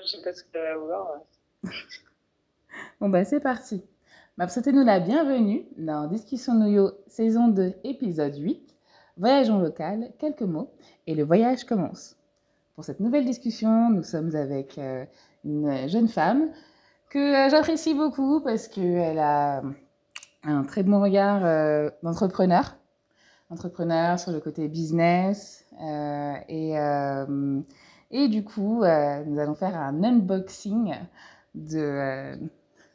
Moi, je pense que vouloir. bon, ben, c'est parti. Ma nous la bienvenue dans Discussion Noyo, saison 2, épisode 8. Voyage en local, quelques mots, et le voyage commence. Pour cette nouvelle discussion, nous sommes avec euh, une jeune femme que euh, j'apprécie beaucoup parce qu'elle a un très bon regard euh, d'entrepreneur, entrepreneur sur le côté business, euh, et euh, Et du coup, euh, nous allons faire un unboxing de, euh,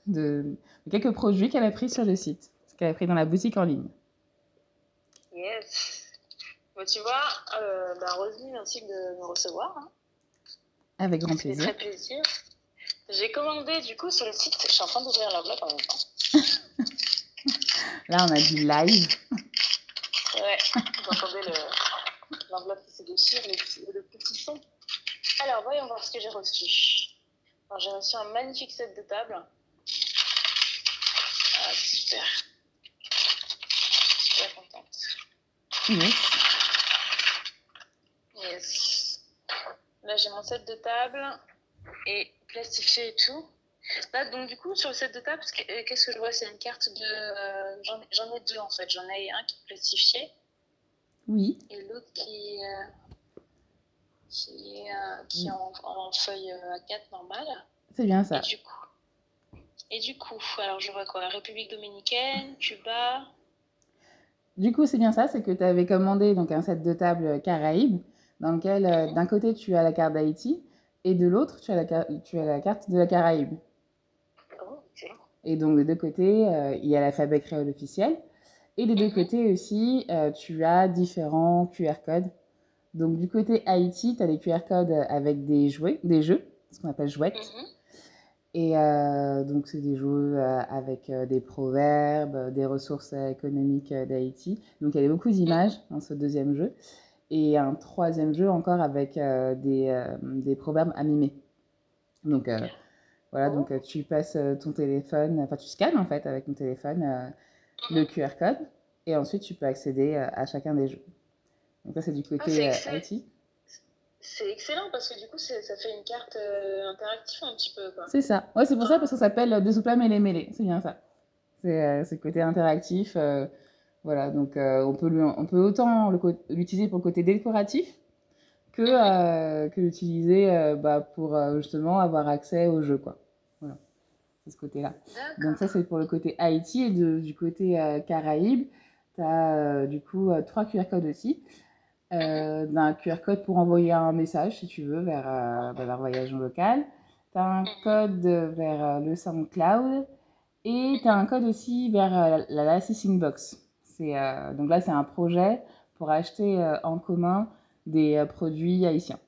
de, de quelques produits qu'elle a pris sur le site, ce qu'elle a pris dans la boutique en ligne. Yes. bon tu vois, euh, bah, Rosely, merci de me recevoir. Hein. Avec grand plaisir. Très plaisir. J'ai commandé du coup sur le site, je suis en train d'ouvrir l'enveloppe en même temps. Là, on a du live. Ouais, vous entendez l'enveloppe le... qui se déchire, le petit son. Alors, voyons voir ce que j'ai reçu. Alors, j'ai reçu set de table. Ah, super. Super contente. Yes. Yes. Là, j'ai mon set de table et plastifié et tout. Là, donc, du coup, sur le set de table, qu'est-ce que je vois C'est une carte de. Euh, J'en ai deux en fait. J'en ai un qui est plastifié. Oui. Et l'autre euh, qui est, euh, qui est en, en, feuille euh, A4 normale. C'est bien ça. Et du coup, et du coup alors je vois quoi la République dominicaine, Cuba. Du coup, c'est bien ça, c'est que tu avais commandé donc un set de table Caraïbes, dans lequel euh, mhm. d'un côté tu as la carte d'Haïti et de l'autre tu, as la, tu as la carte de la Caraïbe. Oh, et donc, de deux côtés, euh, il y a l'alphabet créole officiel. Et des mm -hmm. deux mhm. côtés aussi, euh, tu as différents QR codes Donc, du côté Haïti, tu as des QR codes euh, avec des, jouets, des jeux, ce qu'on appelle jouettes. Mm-hmm. Et euh, donc, c'est des jeux euh, avec euh, des proverbes, des ressources économiques d'Haïti. Donc, il y avait beaucoup mhm. d'images dans ce deuxième jeu. Et un troisième jeu encore avec euh, des, euh, des, proverbes à donc Donc, voilà, oh. donc tu passes ton téléphone, enfin, tu scannes en fait avec ton téléphone le mhm. QR code. Et ensuite, tu peux accéder à chacun des jeux. Donc ça, c'est du côté ah, IT. Euh, c'est excellent parce que du coup, ça fait une carte euh, interactive un petit peu. C'est ça. Ouais, c'est pour ça ah. parce que ça s'appelle euh, Deux soupla mele mêlée. C'est bien ça. C'est euh, le côté interactif. Euh, voilà, donc euh, on, peut lui, on peut autant l'utiliser pour le côté décoratif que, que l'utiliser bah, pour justement avoir accès au jeu. Quoi. Voilà, c'est ce côté-là. Donc ça, c'est pour le côté Haïti et de, du côté Caraïbes. Tu as du coup trois QR codes aussi. Euh, d'un QR code pour envoyer un message, si tu veux, vers, euh, vers Voyageons Local. Tu as un mhm. code vers euh, le SoundCloud et tu as un code aussi vers euh, la Lassis Inbox. Euh, donc là, c'est un projet pour acheter en commun des produits haïtiens,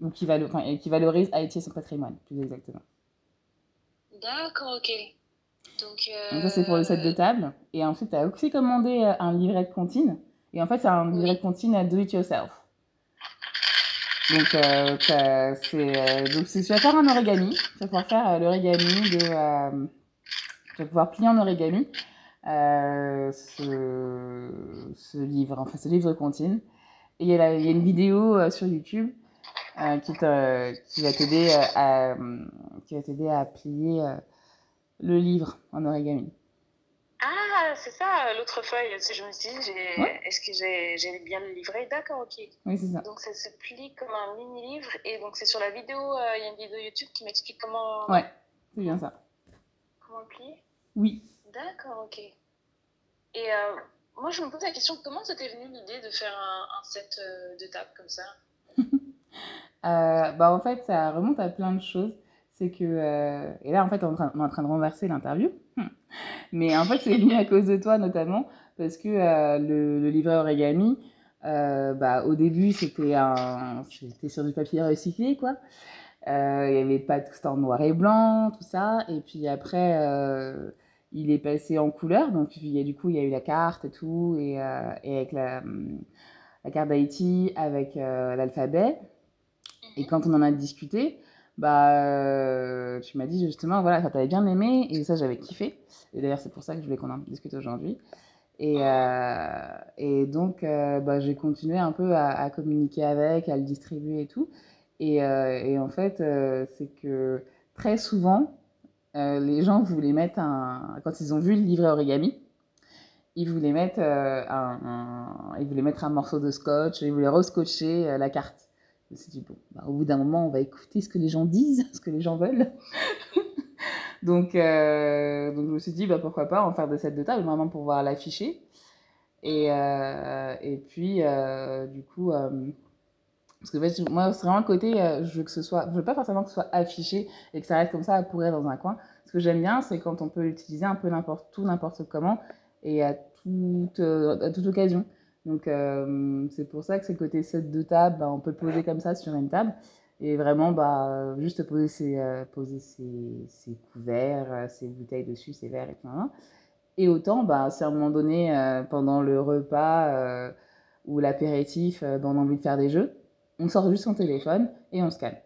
donc qui, valo qui valorise Haïti et son patrimoine, plus exactement. D'accord, ok. Donc, donc ça, c'est pour le set de table. Et ensuite, tu as aussi commandé un livret de comptine Et en fait, c'est un direct continu à do it yourself. Donc, euh, c'est, euh, donc si tu vas faire un origami, tu vas pouvoir faire euh, l'origami de. Euh, tu vas pouvoir plier en origami ce, ce, livre, enfin ce livre de Et il y, a, y, a une vidéo sur YouTube euh, qui, qui, va t'aider à, à plier le livre en origami. Ah, c'est ça, l'autre feuille. Je me suis dit, ouais. est-ce que j'ai bien le livret D'accord, ok. Oui, ça. Donc, ça se plie comme un mini-livre. Et donc, c'est sur la vidéo, euh, il euh, y a une vidéo YouTube qui m'explique comment. Ouais, c'est bien ça. Comment le plier Oui. D'accord, ok. Et euh, moi, je me pose la question comment t'es venue l'idée de faire un, un set euh, de table comme ça euh, bah, En fait, ça remonte à plein de choses. c'est que. Euh, et là, en fait, on, on, est en train de renverser l'interview. Hmm. Mais en fait, c'est venu à cause de toi, notamment, parce que euh, le, le, livret origami, euh, bah, au début, c'était sur du papier recyclé, quoi. Euh, il y avait pas tout en noir et blanc, tout ça. Et puis après, euh, il est passé en couleur. Donc, il y a, du coup, il y a eu la carte et tout, et, euh, et avec la, la carte d'Haïti, avec l'alphabet. Et quand on en a discuté, bah, euh, tu m'as dit justement, voilà, ça t'avait bien aimé, et ça, j'avais kiffé. Et d'ailleurs, c'est pour ça que je voulais qu'on en discute aujourd'hui. Et, euh, et donc, euh, bah, j'ai continué un peu à, à, communiquer avec, à le distribuer et tout. Et, euh, et en fait, euh, c'est que très souvent, euh, les gens voulaient mettre un. Quand ils ont vu le livret origami, ils voulaient mettre, un, un, ils voulaient mettre un morceau de scotch, ils voulaient rescotcher la carte. Je me suis dit, bon, bah, au bout d'un moment, on va écouter ce que les gens disent, ce que les gens veulent. donc, euh, donc, je me suis dit, bah, pourquoi pas en faire des sets de table, vraiment pour pouvoir l'afficher. Et, euh, et puis, euh, du coup, euh, parce que en fait, moi, c'est vraiment le côté, euh, je veux que ce soit, je veux pas forcément que ce soit affiché et que ça reste comme ça à pourrir dans un coin. Ce que j'aime bien, c'est quand on peut l'utiliser un peu n'importe où, n'importe comment et à toute, euh, à toute occasion. Donc euh, c'est pour ça que ce côté set de table, bah, on peut poser comme ça sur une table et vraiment bah, juste poser, ses, euh, poser ses, ses, couverts, euh, ses bouteilles dessus, ses verres et tout. Et autant, bah, si à un moment donné, euh, pendant le repas euh ou l'apéritif, euh, bah, on a envie de faire des jeux, on sort juste son téléphone et on se calme.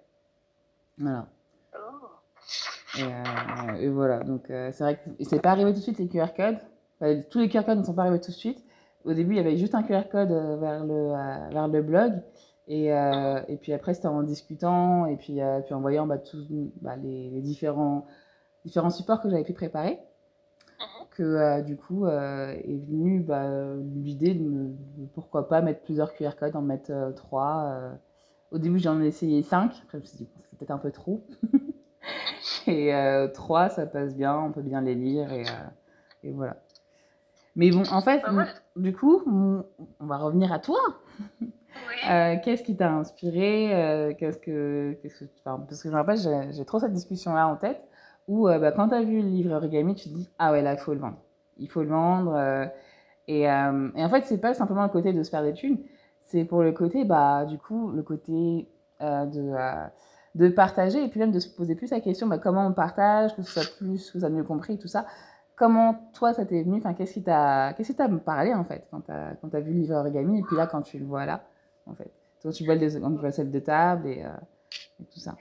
Voilà. Oh. Et, euh, et voilà, donc c'est vrai que c'est pas arrivé tout de suite les QR codes. Enfin, tous les QR codes ne sont pas arrivés tout de suite, au début, il y avait juste un QR code euh, vers le, euh, vers le blog. Et, euh, et puis après, c'était en discutant et puis, euh, puis en voyant bah, tous bah, les, les, différents, différents supports que j'avais pu préparer mhm. que euh, du coup euh, est venue bah, l'idée de, me, de, pourquoi pas mettre plusieurs QR codes, en mettre trois. euh Au début, j'en ai essayé cinq. Après, je me suis dit, c'est peut-être un peu trop. et euh trois, ça passe bien, on peut bien les lire et, euh et voilà. Mais bon, en fait, du coup, on va revenir à toi. Oui. Euh, qu'est-ce qui t'a inspiré euh, qu'est-ce que, qu'est-ce que, enfin, Parce que je me rappelle, j'ai, j'ai trop cette discussion-là en tête, où euh, bah, quand tu as vu le livre Origami, tu te dis Ah ouais, là, il faut le vendre. Il faut le vendre. Euh, et, euh, et, en fait, ce c'est pas simplement le côté de se faire des thunes, c'est pour le côté, bah, du coup, le côté euh, de, de partager, et puis même de se poser plus la question bah, comment on partage, que ce soit plus, que ça mieux compris, tout ça. comment toi, ça t'est venu enfin, Qu'est-ce qui t'a qu parlé, en fait, quand t'as vu le livre origami, et puis là, quand tu le vois là, en fait Quand tu vois, les, quand tu de table et, euh, et tout ça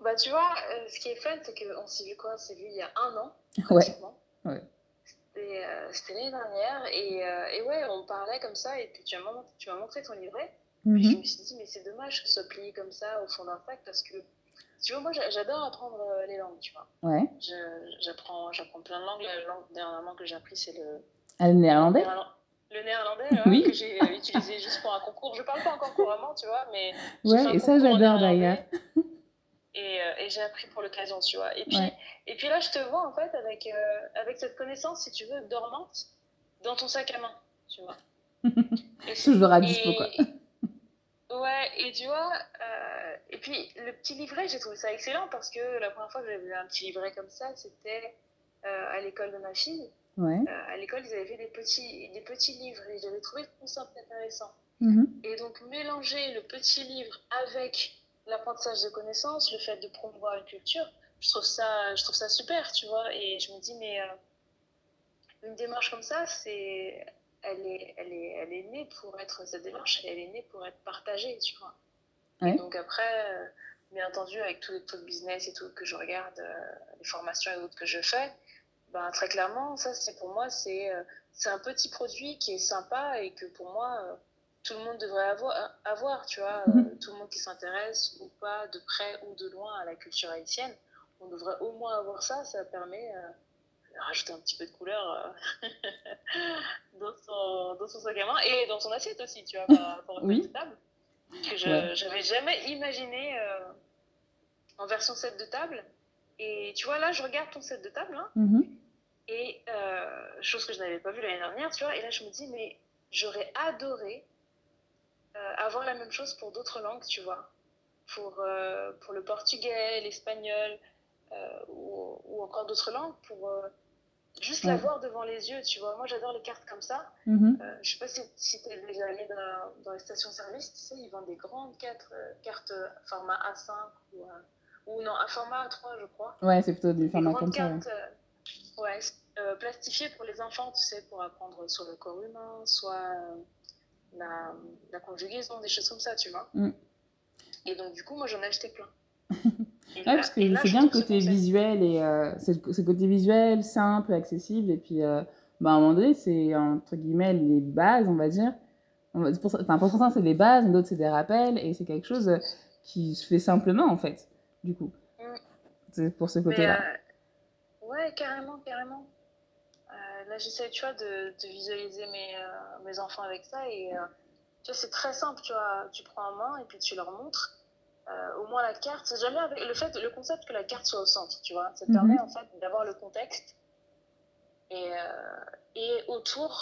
bah, tu vois, euh, ce qui est fun, c'est qu'on s'est vu quoi On s'est vu il y a un an, pratiquement. Ouais. ouais. C'était euh, l'année dernière. Et, euh, et, ouais, on parlait comme ça. Et puis tu m'as montré, montré ton livret. Mm -hmm. Puis je mm-hmm. me suis dit, mais c'est dommage que ce soit plié comme ça au fond d'un sac parce que Tu vois, moi, j'adore apprendre euh, les langues, tu vois. Ouais. J'apprends plein de langues. La langue dernièrement que j'ai appris, c'est le... Ah, le néerlandais Le néerlandais, ouais, oui. que j'ai euh, utilisé juste pour un concours. Je ne parle pas encore couramment, tu vois, mais... Ouais, et ça, j'adore d'ailleurs. Et, euh, et j'ai appris pour l'occasion, tu vois. Et puis, ouais. et puis là, je te vois, en fait, avec, euh, avec cette connaissance, si tu veux, dormante, dans ton sac à main, tu vois. Toujours à dispo, quoi. Ouais, et tu vois, euh, et puis le petit livret, j'ai trouvé ça excellent parce que la première fois que j'avais un petit livret comme ça, c'était euh, à l'école de ma fille. Ouais. Euh, à l'école, ils avaient fait des petits, des petits livres et j'avais trouvé le concept intéressant. Mmh. Et donc, mélanger le petit livre avec l'apprentissage de connaissances, le fait de promouvoir une culture, je trouve ça, je trouve ça super, tu vois. Et je me dis, mais euh, une démarche comme ça, c'est elle est, elle est, elle est née pour être cette démarche, elle est née pour être partagée, tu vois. Ouais. donc après, euh, bien entendu, avec tout le taux de business et tout que je regarde, euh, les formations et autres que je fais, ben, très clairement, ça, c'est pour moi, c'est euh, un petit produit qui est sympa et que pour moi, euh, tout le monde devrait avoir, euh, avoir tu vois, mhm. euh, tout le monde qui s'intéresse ou pas, de près ou de loin à la culture haïtienne, on devrait au moins avoir ça, ça permet rajouter un petit peu de couleur euh, dans, son, dans, son, sac à main et dans son assiette aussi, tu vois, par rapport oui. table. Que je n'avais ouais. jamais imaginé euh, en version set de table. Et tu vois, là, je regarde ton set de table. Hein, mm -hmm. Et euh, chose que je n'avais pas vue l'année dernière, tu vois. Et là, je me dis, mais j'aurais adoré euh, avoir la même chose pour d'autres langues, tu vois. Pour, euh, pour le portugais, l'espagnol euh, ou, ou, encore d'autres langues, pour juste ouais. la voir devant les yeux, tu vois. Moi, j'adore les cartes comme ça. Mm -hmm. euh, je sais pas si, si tu es déjà allé dans, dans les stations-service, tu sais, ils vendent des grandes quatre, euh, cartes euh, format A5 ou, euh, ou, non, un format A3, je crois. Ouais, c'est plutôt du format comme cartes, ça. Ouais, euh, ouais euh, plastifiées pour les enfants, tu sais, pour apprendre sur le corps humain, soit la, la, conjugaison, des choses comme ça, tu vois. Mm. Et donc, du coup, moi, j'en ai acheté plein. Oui, parce que c'est bien le côté visuel, et euh, ce côté visuel, simple, accessible, et puis euh, bah, à un moment donné, c'est entre guillemets les bases, on va dire. On va, pour, enfin, pour certains, c'est des bases, d'autres, c'est des rappels, et c'est quelque chose euh, qui se fait simplement, en fait, du coup. Mm. C'est pour ce côté-là. Euh, ouais, carrément, carrément. Euh, là, j'essaie, tu vois, de, de visualiser mes, euh, mes enfants avec ça, et tu vois, c'est très simple, tu vois, tu prends en main, et puis tu leur montres Euh, au moins la carte, c'est jamais avec le fait, le concept que la carte soit au centre, tu vois. Ça te mm -hmm. permet en fait d'avoir le contexte et, euh, et autour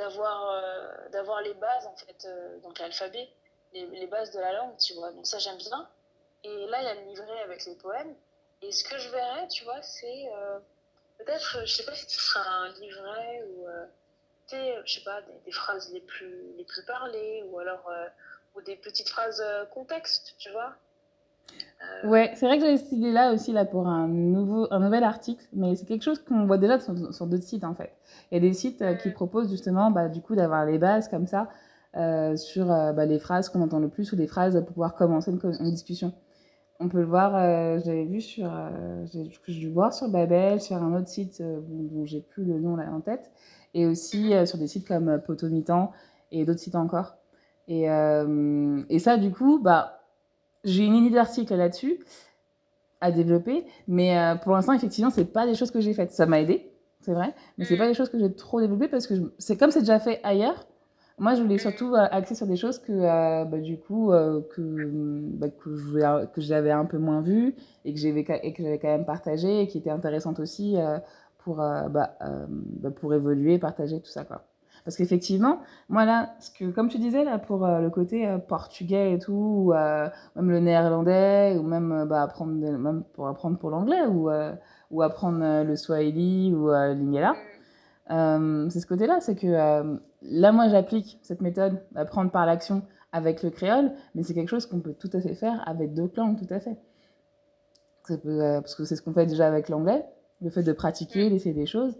d'avoir euh, d'avoir les bases en fait, donc l'alphabet, les, les bases de la langue, tu vois. Donc ça j'aime bien. Et là, il y a le livret avec les poèmes. Et ce que je verrais, tu vois, c'est euh, peut-être, je sais pas si ce sera un livret ou, euh, je sais pas, des, des, phrases les plus, les plus parlées ou alors ou des petites phrases euh, contexte, tu vois. Euh... Ouais, c'est vrai que j'avais cette idée-là aussi là, pour un, nouveau, un nouvel article, mais c'est quelque chose qu'on voit déjà sur, sur d'autres sites en fait. Il y a des sites euh, qui mm. proposent justement bah, du coup d'avoir les bases comme ça euh, sur euh, bah, les phrases qu'on entend le plus ou les phrases pour pouvoir commencer une, une discussion. On peut le voir, euh, j'avais vu sur, j'ai dû voir sur Babel, sur un autre site dont, dont j'ai plus le nom là en tête, et aussi sur des sites comme Potomitan et d'autres sites encore. Et, euh, et ça, du coup, bah, j'ai une idée d'article là-dessus à développer, mais euh, pour l'instant, effectivement, c'est pas des choses que j'ai faites. Ça m'a aidé, c'est vrai, mais c'est mm. pas des choses que j'ai trop développées parce que c'est comme c'est déjà fait ailleurs. Moi, je voulais mm. surtout euh, axer sur des choses que, euh, bah, du coup, euh, que, bah, que, j'avais un peu moins vues et que j'avais quand même partagées et qui étaient intéressantes aussi euh, pour, euh, bah, pour évoluer, partager, tout ça, quoi. Parce qu'effectivement, moi là, ce que, comme tu disais, là, pour euh, le côté euh, portugais et tout, ou euh, même le néerlandais, ou même, euh, bah, apprendre, de, même pour apprendre pour l'anglais, ou, euh, ou apprendre euh, le swahili ou l'ingala, mm. c'est ce côté-là, c'est que là, moi, j'applique cette méthode d'apprendre par l'action avec le créole, mais c'est quelque chose qu'on peut tout à fait faire avec deux langues, tout à fait. Peut, parce que c'est ce qu'on fait déjà avec l'anglais, le fait de pratiquer, mm. d'essayer des choses.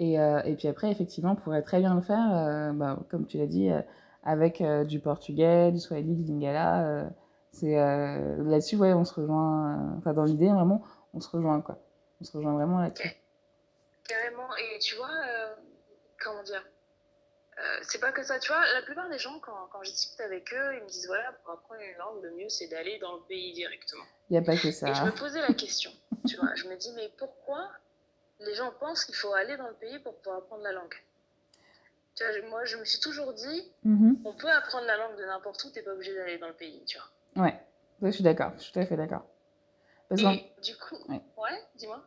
Et, euh, et, puis après, effectivement, on pourrait très bien le faire, euh, bah, comme tu l'as dit, euh, avec euh, du portugais, du swahili, du lingala. Euh, c'est euh, là-dessus, ouais, on se rejoint. Enfin, dans l'idée, vraiment, on se rejoint, quoi. On se rejoint vraiment là-dessus. Carrément. Et tu vois, comment dire C'est pas que ça. Tu vois, la plupart des gens, quand, quand je discute avec eux, ils me disent voilà, pour apprendre une langue, le mieux, c'est d'aller dans le pays directement. Il n'y a pas que ça. Et je me posais la question. tu vois, je me dis mais pourquoi les gens pensent qu'il faut aller dans le pays pour pouvoir apprendre la langue. Tu vois, moi, je me suis toujours dit, mmh. on peut apprendre la langue de n'importe où, t'es pas obligé d'aller dans le pays, tu vois. Ouais, ouais je suis d'accord, je suis tout à fait d'accord. Parce Et du coup, ouais, ouais dis-moi.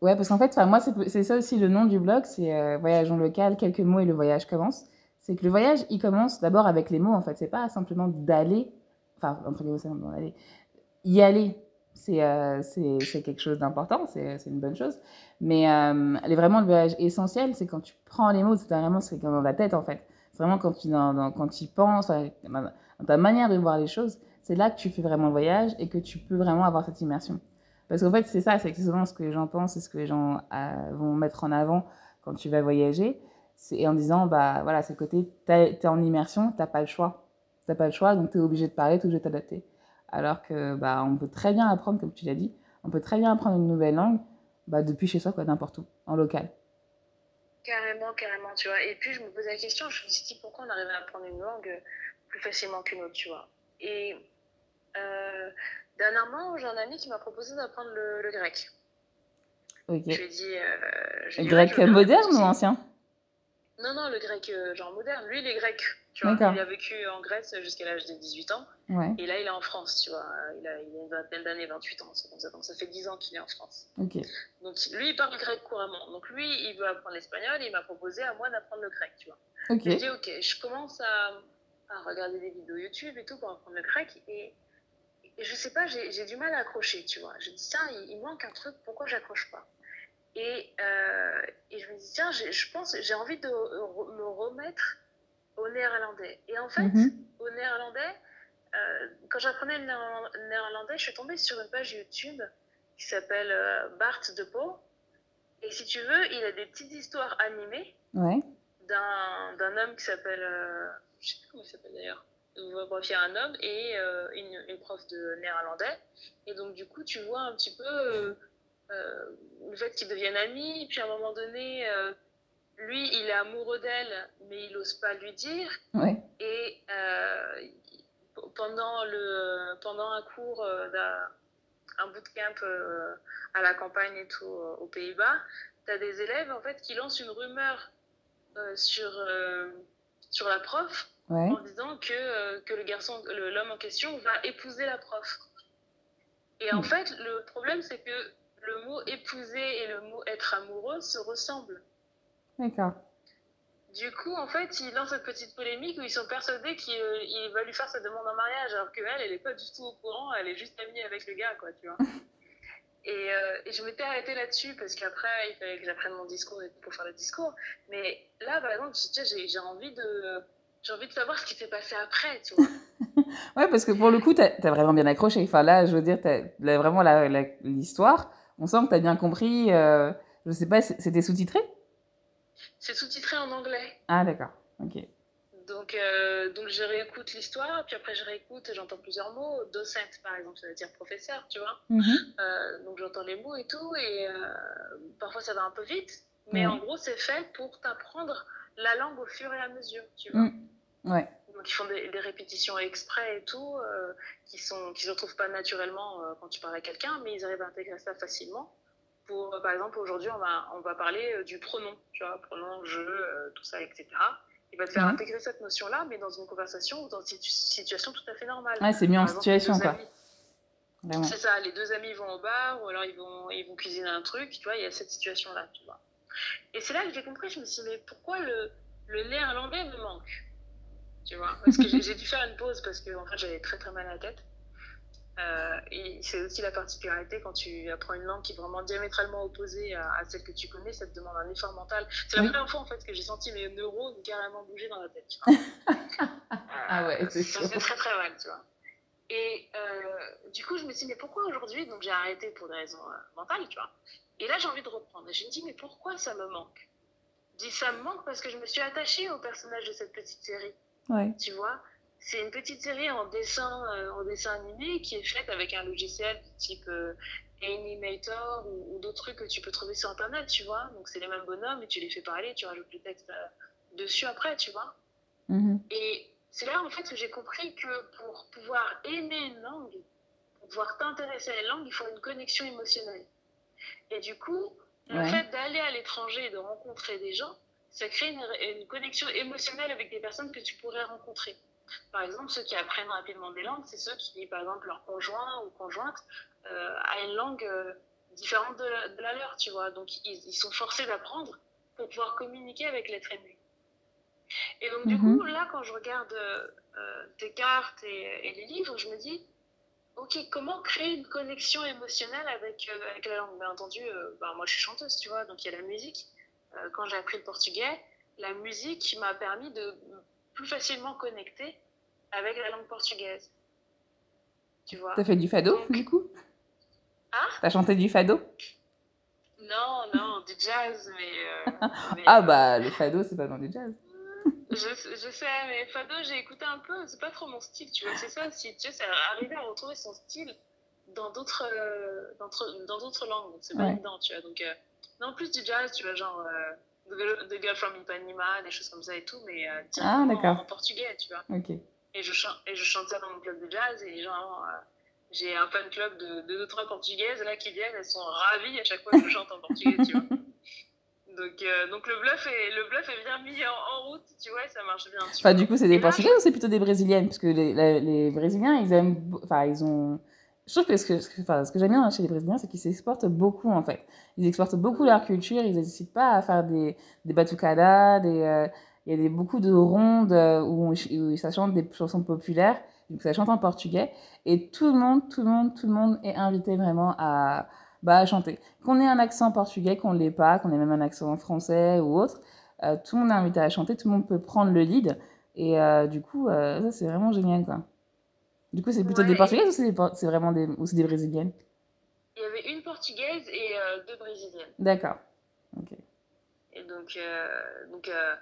Ouais, parce qu'en fait, moi, c'est ça aussi le nom du blog, c'est euh, Voyage en local, quelques mots et le voyage commence. C'est que le voyage, il commence d'abord avec les mots, en fait. C'est pas simplement d'aller, enfin, entre guillemets, c'est d'aller, y aller. c'est euh, quelque chose d'important, c'est une bonne chose. Mais euh, elle est vraiment le voyage essentiel, c'est quand tu prends les mots, c'est vraiment c'est comme dans la tête en fait. C'est vraiment quand tu, dans, dans, quand tu penses, dans ta manière de voir les choses, c'est là que tu fais vraiment le voyage et que tu peux vraiment avoir cette immersion. Parce qu'en fait, c'est ça, c'est souvent ce que les gens pensent, c'est ce que les gens euh, vont mettre en avant quand tu vas voyager. Et en disant, bah voilà, c'est le côté, t'es en immersion, t'as pas le choix. T'as pas le choix, donc t'es obligé de parler, t'es obligé de t'adapter. Alors que bah, on peut très bien apprendre, comme tu l'as dit, on peut très bien apprendre une nouvelle langue bah, depuis chez soi, quoi, n'importe où, en local. Carrément, carrément, tu vois. Et puis je me pose la question, je me suis dit pourquoi on arrive à apprendre une langue euh, plus facilement qu'une autre, tu vois. Et euh, dernièrement, j'ai un ami qui m'a proposé d'apprendre le, le grec. Ok. Je lui ai dit. Euh, je le grec moderne ou ancien Non, non, le grec, euh, genre moderne. Lui, il est grec. Tu vois, il a vécu en Grèce jusqu'à l'âge de 18 ans. Ouais. Et là, il est en France, tu vois. Il a, il a une vingtaine d'années, 28 ans, comme ça. Donc, ça fait 10 ans qu'il est en France. Okay. Donc, lui, il parle grec couramment. Donc, lui, il veut apprendre l'espagnol et il m'a proposé à moi d'apprendre le grec, tu vois. Okay. Je dis, ok, je commence à, à, regarder des vidéos YouTube et tout pour apprendre le grec. Et, et je sais pas, j'ai du mal à accrocher, tu vois. Je dis, tiens, il, il manque un truc, pourquoi j'accroche pas Et, euh, et je me dis, tiens, je pense, j'ai envie de me remettre au néerlandais. Et en fait, mm-hmm. au néerlandais, euh, quand j'apprenais le néerlandais, je suis tombée sur une page YouTube qui s'appelle euh, Bart de Pau. Et si tu veux, il a des petites histoires animées ouais. d'un, d'un homme qui s'appelle. Euh, je sais plus comment il s'appelle d'ailleurs. Euh, bref, il y a un homme et euh, une, une, prof de néerlandais. Et donc, du coup, tu vois un petit peu euh, Euh, le fait qu'ils deviennent amis. Puis à un moment donné, euh, lui, il est amoureux d'elle, mais il n'ose pas lui dire. oui Et euh pendant, le, pendant un cours euh, d'un un bootcamp à la campagne et tout aux Pays-Bas, tu as des élèves en fait qui lancent une rumeur euh, sur, euh, sur la prof ouais. en disant que, euh, que le garçon, l'homme en question va épouser la prof. Et mmh. en hmm. fait, le problème c'est que le mot épouser et le mot être amoureux se ressemblent. D'accord. Du coup, en fait, ils lancent cette petite polémique où ils sont persuadés qu'il euh, va lui faire sa demande en mariage, alors qu'elle, elle n'est pas du tout au courant, elle est juste amie avec le gars, quoi, tu vois. Et, euh, et, je m'étais arrêtée là-dessus parce qu'après, il fallait que j'apprenne mon discours et pour faire le discours. Mais là, par exemple, j'ai envie de. J'ai envie de savoir ce qui s'est passé après, tu vois. ouais, parce que pour le coup, t'as as vraiment bien accroché. Enfin, là, je veux dire, t'as vraiment la la l'histoire. On sent que tu as bien compris. Euh, je sais pas, c'était sous-titré C'est sous-titré en anglais. Ah, d'accord. Ok. Donc, euh, donc je réécoute l'histoire, puis après je réécoute et j'entends plusieurs mots. Docent, par exemple, ça veut dire professeur, tu vois. Mm -hmm. euh, donc j'entends les mots et tout, et euh, parfois ça va un peu vite, mais mm -hmm. en gros, c'est fait pour t'apprendre la langue au fur et à mesure, tu vois. Mm -hmm. Ouais. qui font des, des, répétitions exprès et tout, euh, qui sont qui se retrouvent pas naturellement euh, quand tu parles à quelqu'un, mais ils arrivent à intégrer ça facilement. Pour, euh, par exemple, aujourd'hui, on va, on va parler euh, du pronom, tu vois, pronom, je, euh, tout ça, etc. Il va te faire mmh. intégrer cette notion-là, mais dans une conversation ou dans une situation tout à fait normale. Ouais, c'est mis en situation, quoi. C'est ça, les deux amis vont au bar ou alors ils vont, ils vont cuisiner un truc, tu vois, il y a cette situation-là, tu vois. Et c'est là que j'ai compris, je me suis dit, mais pourquoi le, le néerlandais me manque tu vois. Parce que j'ai dû faire une pause parce que en fait, j'avais très très mal à la tête. Euh, et c'est aussi la particularité quand tu apprends une langue qui est vraiment diamétralement opposée à, à celle que tu connais, ça te demande un effort mental. C'est la oui. première fois en fait que j'ai senti mes neurones carrément bouger dans la tête. Tu vois. euh, ah ouais, euh, c'est Ça fait très très mal, tu vois. Et euh, du coup, je me suis dit, mais pourquoi aujourd'hui Donc j'ai arrêté pour des raisons euh, mentales, tu vois. Et là, j'ai envie de reprendre. Et je me dis, mais pourquoi ça me manque Je dis, ça me manque parce que je me suis attachée au personnage de cette petite série. Ouais. Tu vois c'est une petite série en dessin, euh, en dessin animé qui est faite avec un logiciel type euh, Animator ou, ou d'autres trucs que tu peux trouver sur Internet, tu vois. Donc, c'est les mêmes bonhommes et tu les fais parler, tu rajoutes le texte euh, dessus après, tu vois. Mm -hmm. Et c'est là, en fait, que j'ai compris que pour pouvoir aimer une langue, pour pouvoir t'intéresser à la langue, il faut une connexion émotionnelle. Et du coup, ouais. le fait d'aller à l'étranger et de rencontrer des gens, ça crée une, une, connexion émotionnelle avec des personnes que tu pourrais rencontrer. Par exemple, ceux qui apprennent rapidement des langues, c'est ceux qui, par exemple, leur conjoint ou conjointe euh, a une langue euh, différente de la, de la, leur, tu vois. Donc, ils, ils sont forcés d'apprendre pour pouvoir communiquer avec l'être aimé. Et donc, du mm -hmm. coup, mhm. là, quand je regarde euh, tes cartes et, et, les livres, je me dis, ok, comment créer une connexion émotionnelle avec, euh, avec la langue Bien entendu, euh, bah, moi, je suis chanteuse, tu vois, donc il y a la musique. Euh, quand j'ai appris le portugais, la musique m'a permis de plus facilement connecter avec la langue portugaise. Tu vois T'as fait du fado, Donc... du coup Ah T'as chanté du fado Non, non, du jazz, mais... Euh, mais ah euh, bah, le fado, c'est pas dans du jazz. je, je, sais, mais fado, j'ai écouté un peu, c'est pas trop mon style, tu vois, c'est ça, si tu sais, arriver à retrouver son style dans d'autres euh, dans d'autres langues, c'est pas ouais. évident, tu vois, donc... Euh, Non, en plus du jazz, tu vois, genre euh, The Girl from Ipanema, des choses comme ça et tout, mais euh, ah, en portugais, tu vois. Ok. Et je, chante, et je chante ça dans mon club de jazz et genre euh, j'ai un fan club de, de ou trois portugaises là qui viennent elles sont ravies à chaque fois que je chante en portugais tu vois donc, euh, donc le bluff est le bluff est bien mis en, en route tu vois ça marche bien enfin, du coup c'est des portugais ou c'est plutôt des brésiliennes parce que les, les, les brésiliens ils aiment enfin ils ont Je trouve que ce que, enfin, ce que j'aime bien chez les Brésiliens, c'est qu'ils s'exportent beaucoup, en fait. Ils exportent beaucoup leur culture, ils n'hésitent pas à faire des, des batucadas, des, euh, il y a des, beaucoup de rondes euh, où, où ça chante des chansons populaires, donc ça chante en portugais, et tout le monde, tout le monde, tout le monde est invité vraiment à, bah, à chanter. Qu'on ait un accent portugais, qu'on ne l'ait pas, qu'on ait même un accent français ou autre, euh, tout le monde est invité à chanter, tout le monde peut prendre le lead, et euh, du coup, euh, ça c'est vraiment génial, quoi. Du coup, c'est plutôt ouais, des Portugaises et... ou c'est, des vraiment des... Ou des Brésiliennes Il y avait une Portugaise et euh, deux Brésiliennes. D'accord. Ok. Et donc, euh, donc euh,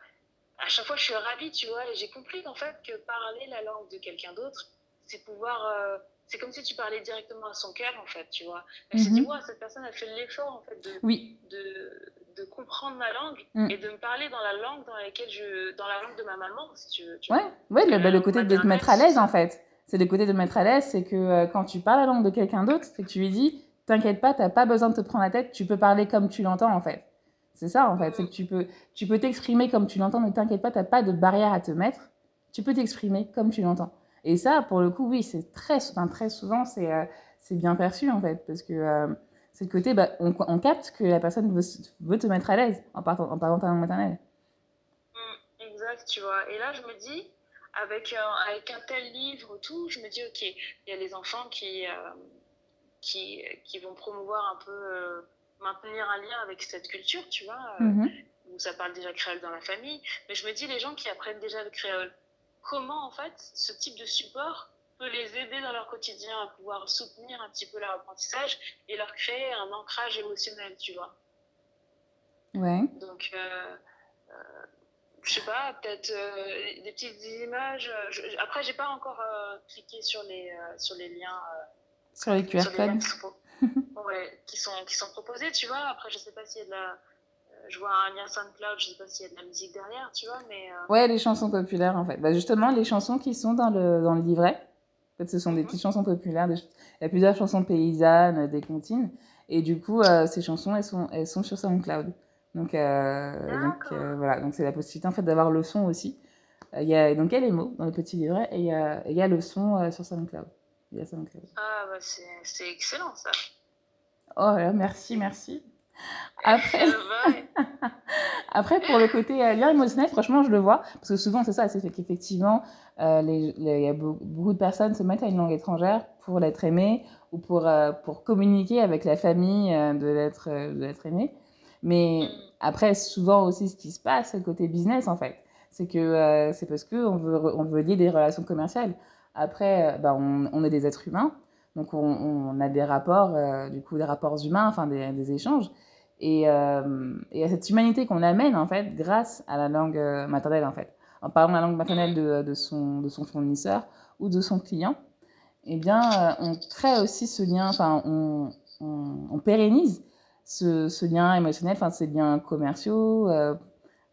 à chaque fois, je suis ravie, tu vois. Et j'ai compris qu'en fait, que parler la langue de quelqu'un d'autre, c'est pouvoir euh, c'est comme si tu parlais directement à son cœur, en fait, tu vois. Elle mm-hmm. s'est dit, mm-hmm. ouais, cette personne a fait l'effort, en fait, de, oui. de, de, comprendre ma langue mm. et de me parler dans la langue dans laquelle je, dans la langue de ma maman, si tu veux. Tu ouais, vois. ouais le, le côté de te mettre à l'aise, en fait. c'est le côté de mettre à l'aise, c'est que euh, quand tu parles la langue de quelqu'un d'autre, c'est que tu lui dis, t'inquiète pas, t'as pas besoin de te prendre la tête, tu peux parler comme tu l'entends en fait. C'est ça en fait, c'est que tu peux, tu peux t'exprimer comme tu l'entends, ne t'inquiète pas, t'as pas de barrière à te mettre, tu peux t'exprimer comme tu l'entends. Et ça, pour le coup, oui, c'est très, enfin, très souvent, c'est euh, c'est bien perçu en fait, parce que euh, c'est le côté, bah, on, on, capte que la personne veut, veut te mettre à l'aise en, parlant en parlant ta langue maternelle. Mm, exact, tu vois. Et là, je me dis, avec, avec un tel livre, tout, je me dis, ok, il y a les enfants qui, euh, qui, qui, vont promouvoir un peu, euh, maintenir un lien avec cette culture, tu vois. hmm où ça parle déjà créole dans la famille, mais je me dis les gens qui apprennent déjà le créole, comment en fait ce type de support peut les aider dans leur quotidien à pouvoir soutenir un petit peu leur apprentissage et leur créer un ancrage émotionnel, tu vois. Ouais. Donc, euh, euh, je sais pas, peut-être euh, des petites images. Euh, je, après, j'ai pas encore euh, cliqué sur les, euh, sur les liens. Euh, sur les QR codes. ouais, qui sont, qui sont proposés, tu vois. Après, je sais pas s'il y a de la. Euh, je vois un lien SoundCloud, je sais pas s'il y a de la musique derrière, tu vois, mais. Ouais, les chansons populaires, en fait. Bah, justement, les chansons qui sont dans le, dans le livret. En fait, ce sont des mhm. petites chansons populaires. Des... Il y a plusieurs chansons paysannes, des comptines. Et du coup, ces chansons, elles sont, elles sont sur SoundCloud. Donc, euh, donc euh, voilà, donc c'est la possibilité en fait d'avoir le son aussi. Euh, il y a, donc il y a les mots dans le petit livret et il y a, y a le son sur SoundCloud. Il y a SoundCloud. Ah bah c'est excellent ça. Oh là, merci, merci. Eh, après, Après, pour le côté euh, lien émotionnel, franchement, je le vois. Parce que souvent, c'est ça, c'est qu'effectivement, euh, il y a beaucoup de personnes se mettent à une langue étrangère pour l'être aimé ou pour, euh, pour communiquer avec la famille de l'être aimé. Mais mm. après, souvent aussi, ce qui se passe côté business, en fait, c'est que euh, c'est parce qu'on veut, on veut lier des relations commerciales. Après, euh, on, on, est des êtres humains, donc on, on a des rapports, euh, du coup, des rapports humains, enfin des, des échanges. Et, euh, et, à cette humanité qu'on amène, en fait, grâce à la langue euh, maternelle, en fait. En parlant la langue maternelle de, de, son, de son fournisseur ou de son client, eh bien, euh, on crée aussi ce lien, enfin, on, on, on pérennise ce, ce, lien émotionnel, enfin ces liens commerciaux euh,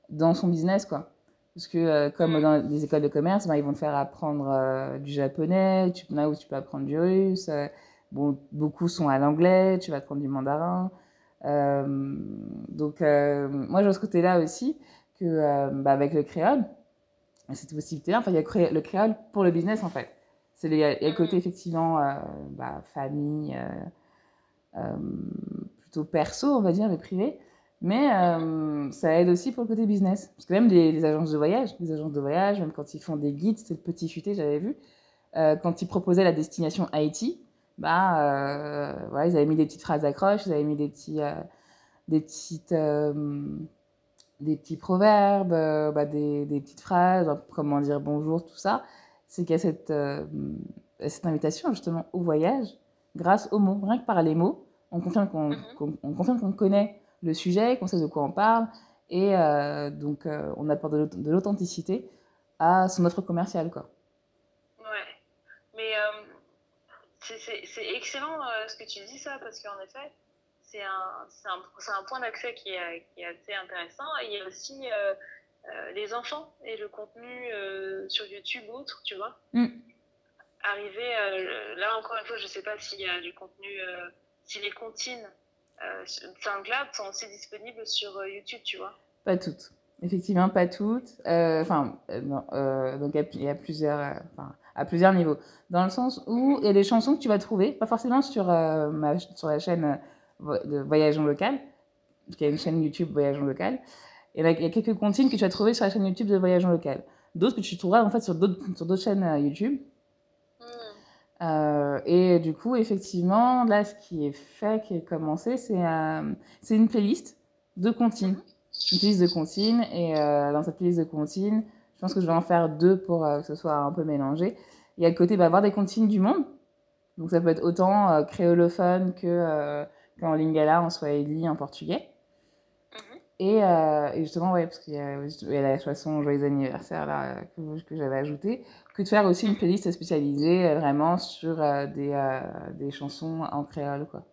dans son business, quoi. Parce que euh, comme mm. dans les écoles de commerce, ben, ils vont te faire apprendre euh, du japonais, tu, là où tu peux apprendre du russe. Euh, bon, beaucoup sont à l'anglais, tu vas apprendre du mandarin. Euh, donc euh, moi, j'ai ce côté-là aussi que bah, avec le créole, cette possibilité-là, enfin il y a le créole pour le business en fait. C'est le, il y a le côté mm. effectivement bah, famille plutôt perso, on va dire, les privé Mais euh, ça aide aussi pour le côté business. Parce que même les, les, agences de voyage, les agences de voyage, même quand ils font des guides, c'est le petit futé, j'avais vu, euh, quand ils proposaient la destination Haïti, bah, euh, voilà, ils avaient mis des petites phrases d'accroche, ils avaient mis des petits, euh, des petites, euh, des petits proverbes, euh, bah, des, des, petites phrases, comment dire bonjour, tout ça. C'est qu'il y a cette, cette invitation justement au voyage grâce aux mots, rien que par les mots on confirme qu'on mhm. qu qu'on connaît le sujet, qu'on sait de quoi on parle, et euh, donc euh, on apporte de l'authenticité à son offre commerciale. Quoi. Ouais, mais euh, c'est excellent euh, ce que tu dis ça, parce qu'en effet, c'est un, un, un, point d'accès qui, qui, est assez intéressant. Et il y a aussi euh, les enfants et le contenu sur YouTube ou autre, tu vois. Mm. Arriver, là encore une fois, je ne sais pas s'il y a du contenu si les comptines euh, SoundCloud sont aussi disponibles sur euh, YouTube, tu vois. Pas toutes. Effectivement, pas toutes. Euh, enfin, euh, euh donc il y a plusieurs, à plusieurs niveaux. Dans le sens où il y a des chansons que tu vas trouver, pas forcément sur, ma, sur la chaîne de Voyage en local, qui est une chaîne YouTube Voyage en local. Et là, il y a quelques comptines que tu vas trouver sur la chaîne YouTube de Voyage en local. D'autres que tu trouveras en fait sur d'autres chaînes YouTube. Mmh. et euh, du coup, effectivement, là, ce qui est fait, qui est commencé, c'est euh, c'est une playlist de comptines. Mhm. Une playlist de comptines. Et euh, dans cette playlist de comptines, je pense que je vais en faire deux pour que ce soit un peu mélangé. Il y a le côté bah, avoir des comptines du monde. Donc ça peut être autant euh, créolophone que euh, qu'en lingala, en swahili, en portugais. Mhm. et, euh, et, justement, ouais, parce qu'il y, y, a la chanson Joyeux anniversaire là, que, que j'avais ajoutée, que de faire aussi une mm. playlist spécialisée euh, vraiment sur euh, des, euh, des, chansons en créole, quoi.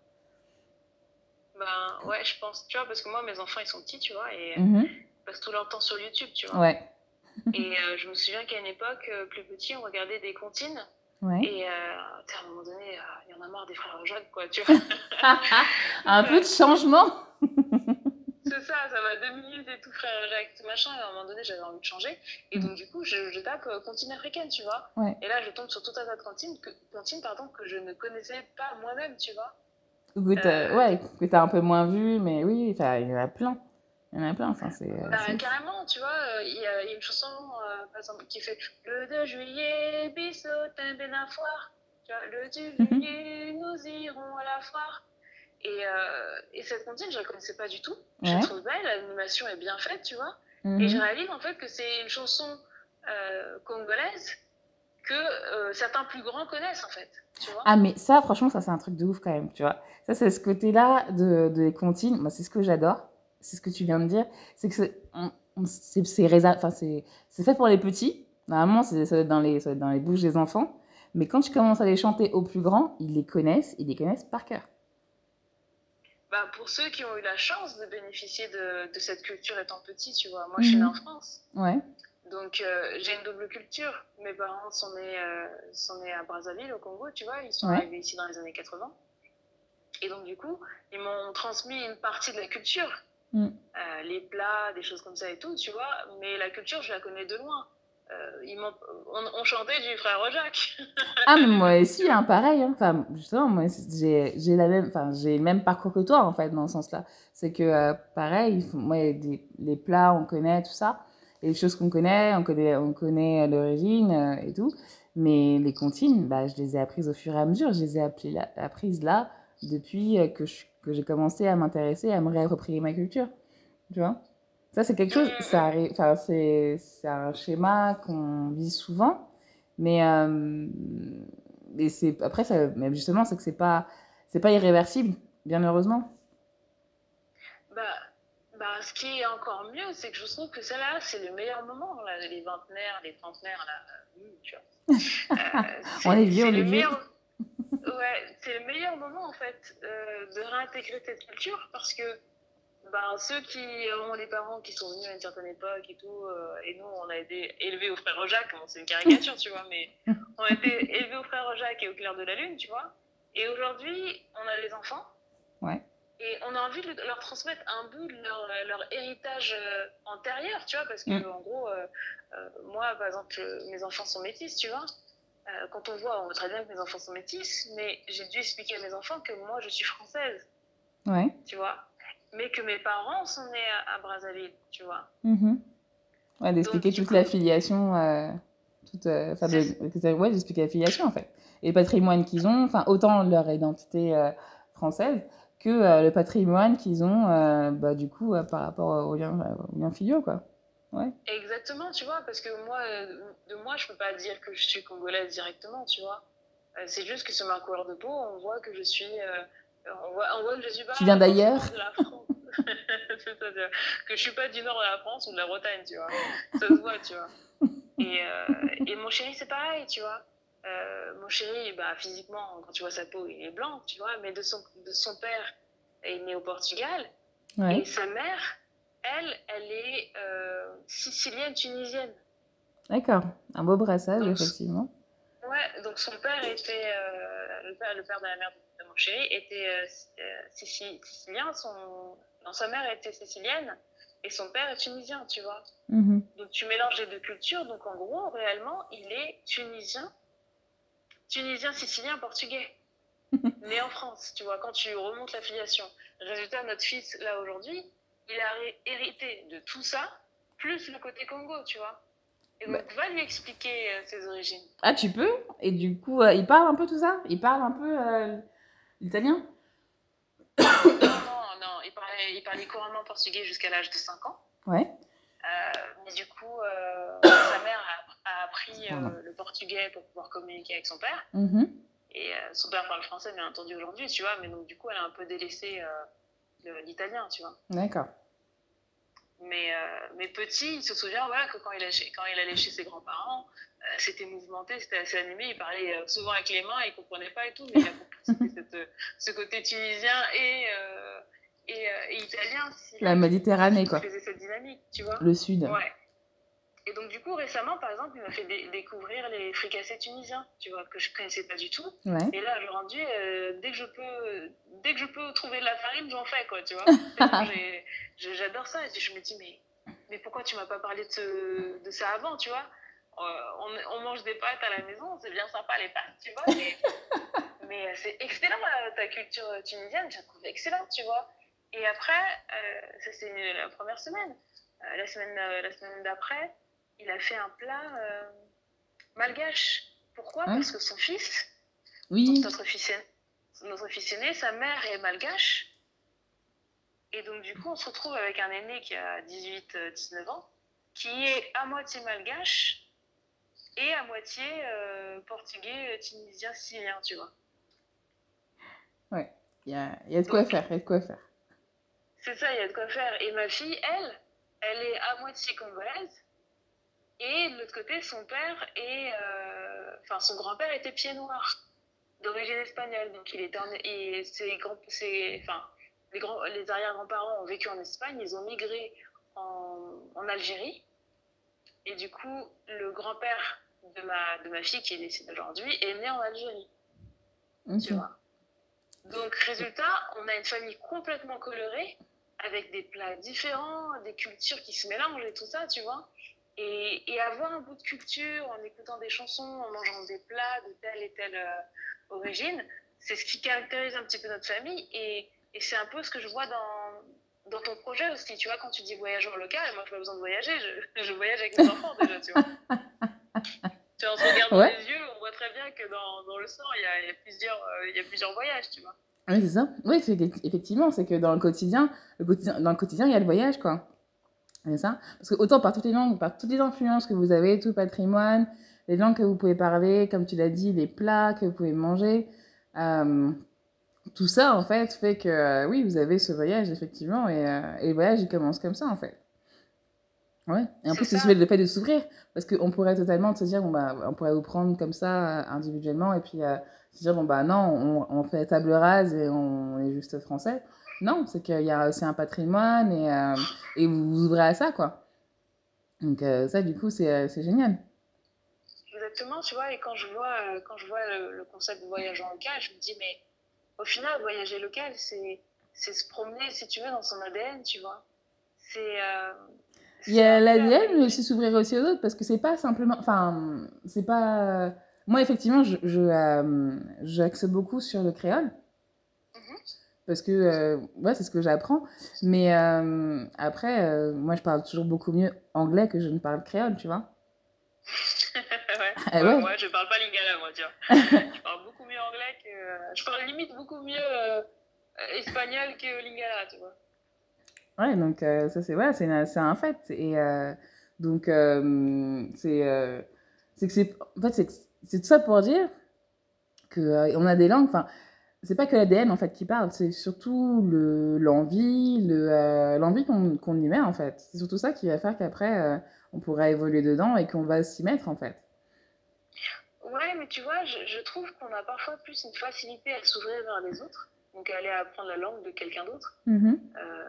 Ben, ouais, je pense, tu vois, parce que moi, mes enfants, ils sont petits, tu vois, et mm -hmm. ils passent tout leur temps sur YouTube, tu vois. Ouais. et euh, je me souviens qu'à une époque, plus petit, on regardait des comptines. Ouais. Et euh, à un moment donné, il euh, y en a marre des frères Jacques, quoi, tu vois. un peu de changement ça, ça deux minutes et tout, frère Jacques, tout machin. Et à un moment donné, j'avais envie de changer. Et donc, mm. du coup, je, je tape euh, cantine africaine, tu vois. Ouais. Et là, je tombe sur tout un tas de cantines que, pardon, que je ne connaissais pas moi-même, tu vois. Euh, ouais, que t'as un peu moins vu, mais oui, il y en a plein. Il y en a plein, enfin, c'est. Euh, bah, carrément, tu vois, euh, il y, a une chanson, euh, par exemple, qui fait Le 2 juillet, bisous, t'es bien à foire. Tu vois, le 2 mm-hmm. juillet, nous Et, euh, et, cette cantine, je la connaissais pas du tout. Ouais. Je la trouve belle, l'animation est bien faite, tu vois. Mm -hmm. Et mhm. je réalise en fait que c'est une chanson euh, congolaise que euh, certains plus grands connaissent en fait. Tu vois ah, mais ça, franchement, ça c'est un truc de ouf quand même, tu vois. Ça, c'est ce côté-là de, des de comptines. Moi, c'est ce que j'adore. C'est ce que tu viens de dire. C'est que c'est fait pour les petits. Normalement, ça doit, être dans les, ça doit être dans les bouches des enfants. Mais quand tu commences à les chanter aux plus grands, ils les connaissent, ils les connaissent par cœur. bah, pour ceux qui ont eu la chance de bénéficier de, de cette culture étant petit, tu vois. Moi, mmh. je suis mhm. née en France. Ouais. Donc, euh, j'ai une double culture. Mes parents sont nés, euh, sont nés à Brazzaville, au Congo, tu vois. Ils sont ouais. arrivés ici dans les années 80. Et donc, du coup, ils m'ont transmis une partie de la culture. Mmh. Euh, les plats, des choses comme ça et tout, tu vois. Mais la culture, je la connais de loin. euh ils on, on, chantait du frère Jacques. ah, mais moi aussi, hein, pareil. Hein. Enfin, justement, moi, j'ai, j'ai, la même, enfin, j'ai le même parcours que toi, en fait, dans ce sens-là. C'est que, euh, pareil, moi, des, les plats, on connaît tout ça. Et les choses qu'on connaît, on connaît, on connaît euh, l'origine euh, et tout. Mais les comptines, bah, je les ai apprises au fur et à mesure. Je les ai apprises là depuis que, je, que j'ai commencé à m'intéresser, à me réapproprier ma culture. Tu vois Ça, c'est quelque chose, ça mmh. arrive, enfin, c'est un schéma qu'on vit souvent, mais euh, et c'est après, ça, mais justement, c'est que c'est pas, c'est pas irréversible, bien heureusement. Bah, bah, ce qui est encore mieux, c'est que je trouve que celle-là, c'est le meilleur moment, là, les vingtenaires, les trentenaires, là, euh, mmh, tu vois. Euh, on est vieux, on est vieux. ouais, c'est le meilleur moment, en fait, euh, de réintégrer cette culture, parce que ben, ceux qui ont les parents qui sont venus à une certaine époque et tout, euh, et nous, on a été élevés au frère Jacques, bon, c'est une caricature, tu vois, mais on a été élevés au frère Jacques et au clair de la lune, tu vois. Et aujourd'hui, on a les enfants. Ouais. Et on a envie de leur transmettre un bout de leur, leur héritage euh, antérieur, tu vois, parce que mmh. en gros, euh, euh, moi, par exemple, euh, mes enfants sont métis, tu vois. Euh, quand on voit, on voit très bien que mes enfants sont métis, mais j'ai dû expliquer à mes enfants que moi, je suis française. Ouais. Tu vois. mais que mes parents sont nés à, à Brazzaville, tu vois. Mmh. Ouais, d'expliquer toute coup... l'affiliation. Euh, toute, euh, de, ouais, la filiation en fait. Et le patrimoine qu'ils ont, enfin, autant leur identité euh, française que euh, le patrimoine qu'ils ont, euh, bah, du coup, euh, par rapport aux liens, au liens filiaux, quoi. Ouais. Exactement, tu vois, parce que moi, de moi, je peux pas dire que je suis congolaise directement, tu vois. c'est juste que sur ma couleur de peau, on voit que je suis On voit, que je suis pas. Tu viens d'ailleurs C'est-à-dire que je suis pas du nord de la France ou de la Bretagne, tu vois. Ça se voit, tu vois. Et, euh, et mon chéri, c'est pareil, tu vois. Euh, mon chéri, bah, physiquement, quand tu vois sa peau, il est blanc, tu vois. Mais de son, de son père, il est né au Portugal. Ouais. Et sa mère, elle, elle est euh, sicilienne, tunisienne. D'accord. Un beau brassage, donc, effectivement. Ouais, donc son père était euh, le père, le père de la mère de Rinpoché était sicilien, euh, son... Non, sa mère était sicilienne et son père est tunisien, tu vois. Mmh. Donc tu mélanges les deux cultures, donc en gros, réellement, il est tunisien, tunisien, sicilien, portugais, né en France, tu vois, quand tu remontes la Résultat, notre fils, là, aujourd'hui, il a hérité de tout ça, plus le côté Congo, tu vois. Et donc, bah. va lui expliquer euh, ses origines. Ah, tu peux Et du coup, euh, il parle un peu tout ça Il parle un peu... Euh... italien. Non, non, il parlait, il parlait couramment portugais jusqu'à l'âge de 5 ans. Ouais. Euh, mais du coup, euh, sa mère a, a appris euh, le portugais pour pouvoir communiquer avec son père. Mmh. Et euh, son père parle français, bien entendu, aujourd'hui, tu vois. Mais donc, du coup, elle a un peu délaissé euh l'italien, tu vois. D'accord. Mais, euh, mais, petit, il se souvient voilà, que quand il, allait, quand il allait chez ses grands-parents, euh, c'était mouvementé, c'était assez animé. Il parlait euh, souvent avec les mains, il ne comprenait pas et tout, mais il a compris cette, ce côté tunisien et, euh, et, euh, et italien. Si La Méditerranée, quoi. faisait cette dynamique, tu vois. Le sud. Ouais. Et donc, du coup, récemment, par exemple, il m'a fait découvrir les fricassés tunisiens, tu vois, que je ne connaissais pas du tout. Ouais. Et là, le rendu, euh, dès, que je peux, dès que je peux trouver de la farine, j'en fais, quoi, tu vois. J'adore ça. Et puis, je me dis, mais, mais pourquoi tu m'as pas parlé de, ce, de ça avant, tu vois euh, on, on, mange des pâtes à la maison, c'est bien sympa les pâtes, tu vois. Mais, mais euh, c'est excellent euh, ta culture tunisienne, je la trouve excellente, tu vois. Et après, euh, ça c'est la première semaine. Euh, la semaine, la semaine d'après, il a fait un plat euh, malgache. Pourquoi hein Parce que son fils, oui. notre, fils aîné, notre fils aîné, sa mère est malgache. Et donc, du coup, on se retrouve avec un aîné qui a 18-19 euh, ans, qui est à moitié malgache et à moitié euh, portugais, euh, tunisien, syrien, tu vois. Ouais, il y a, y a de quoi donc, faire, il y a de quoi faire. C'est ça, il y a de quoi faire. Et ma fille, elle, elle est à moitié congolaise Et de l'autre côté, son père et euh, enfin son grand-père était pied noir d'origine espagnole. Donc il est en, et ses grands, ses, enfin, les, grands, les arrière-grands-parents ont vécu en Espagne, ils ont migré en, en Algérie. Et du coup, le grand-père de ma, de ma fille qui est décédée aujourd'hui est né en Algérie. Okay. Tu vois Donc résultat, on a une famille complètement colorée avec des plats différents, des cultures qui se mélangent et tout ça, tu vois. Et, et, avoir un bout de culture en écoutant des chansons, en mangeant des plats de telle et telle euh, origine, c'est ce qui caractérise un petit peu notre famille. Et, et c'est un peu ce que je vois dans, dans ton projet aussi. Tu vois, quand tu dis voyageur local, moi, je n'ai pas besoin de voyager. Je, je, voyage avec mes enfants déjà, tu vois. tu en se regardant ouais. les yeux, on voit très bien que dans, dans le sang, il y a, y, a plusieurs, euh, y a plusieurs voyages, tu vois. Oui, c'est ça. Oui, effectivement, c'est que dans le quotidien, le quotidien, dans le quotidien, il y a le voyage, quoi. Et ça, parce que autant par toutes les langues, par toutes les influences que vous avez, tout le patrimoine, les langues que vous pouvez parler, comme tu l'as dit, les plats que vous pouvez manger, euh, tout ça, en fait, fait que euh, oui, vous avez ce voyage, effectivement, et, euh, et, le voyage, il commence comme ça, en fait. Ouais. Et en plus, c'est le fait de s'ouvrir, parce qu'on pourrait totalement se dire, bon, bah, on pourrait vous prendre comme ça, euh, individuellement, et puis euh, se dire, bon, bah non, on, on fait table rase et on est juste français. Non, c'est qu'il y a aussi un patrimoine et, euh, et vous vous ouvrez à ça, quoi. Donc euh, ça, du coup, c'est euh, génial. Exactement, tu vois, et quand je vois, euh, quand je vois le, le concept de voyage en local, je me dis, mais au final, voyager local, c'est se promener, si tu veux, dans son ADN, tu vois. Euh, c'est... Il y a l'ADN, mais aussi s'ouvrir aussi aux autres, parce que c'est pas simplement... Enfin, c'est pas... Moi, effectivement, j'axe je, je euh, beaucoup sur le créole, parce que euh, ouais, c'est ce que j'apprends. Mais euh, après, euh, moi, je parle toujours beaucoup mieux anglais que je ne parle créole, tu vois. ouais. Ah, ouais. ouais. Moi, je parle pas lingala, moi, tu vois. je parle beaucoup mieux anglais que. Euh, je parle limite beaucoup mieux euh, espagnol que lingala, tu vois. Ouais, donc euh, ça, c'est ouais, c'est un fait. Et donc, c'est. c'est que c'est. En fait, c'est tout ça pour dire qu'on a des langues. Enfin c'est pas que l'ADN en fait qui parle, c'est surtout l'envie, le, l'envie le, euh, qu'on qu y met en fait. C'est surtout ça qui va faire qu'après euh, on pourra évoluer dedans et qu'on va s'y mettre en fait. Ouais, mais tu vois, je, je trouve qu'on a parfois plus une facilité à s'ouvrir vers les autres, donc à aller apprendre la langue de quelqu'un d'autre, mm -hmm. euh,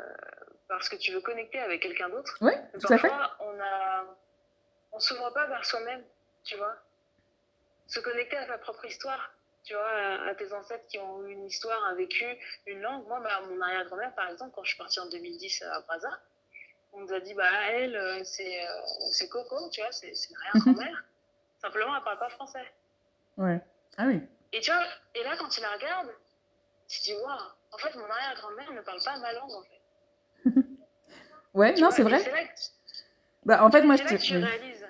parce que tu veux connecter avec quelqu'un d'autre. Ouais, tout à fait. on a, on s'ouvre pas vers soi-même, tu vois. Se connecter à sa propre histoire, tu vois, à, tes ancêtres qui ont eu une histoire, un vécu, une langue. Moi, bah, mon arrière-grand-mère, par exemple, quand je suis partie en 2010 à Braza, on nous a dit, bah, elle, euh, c'est euh, Coco, tu vois, c'est une arrière-grand-mère. Simplement, elle parle pas français. Ouais. Ah oui. Et tu vois, et là, quand tu la regardes, tu te dis, waouh, en fait, mon arrière-grand-mère ne parle pas ma langue, en fait. ouais, tu non, c'est vrai. Que... Bah, en fait, moi, je te... réalises,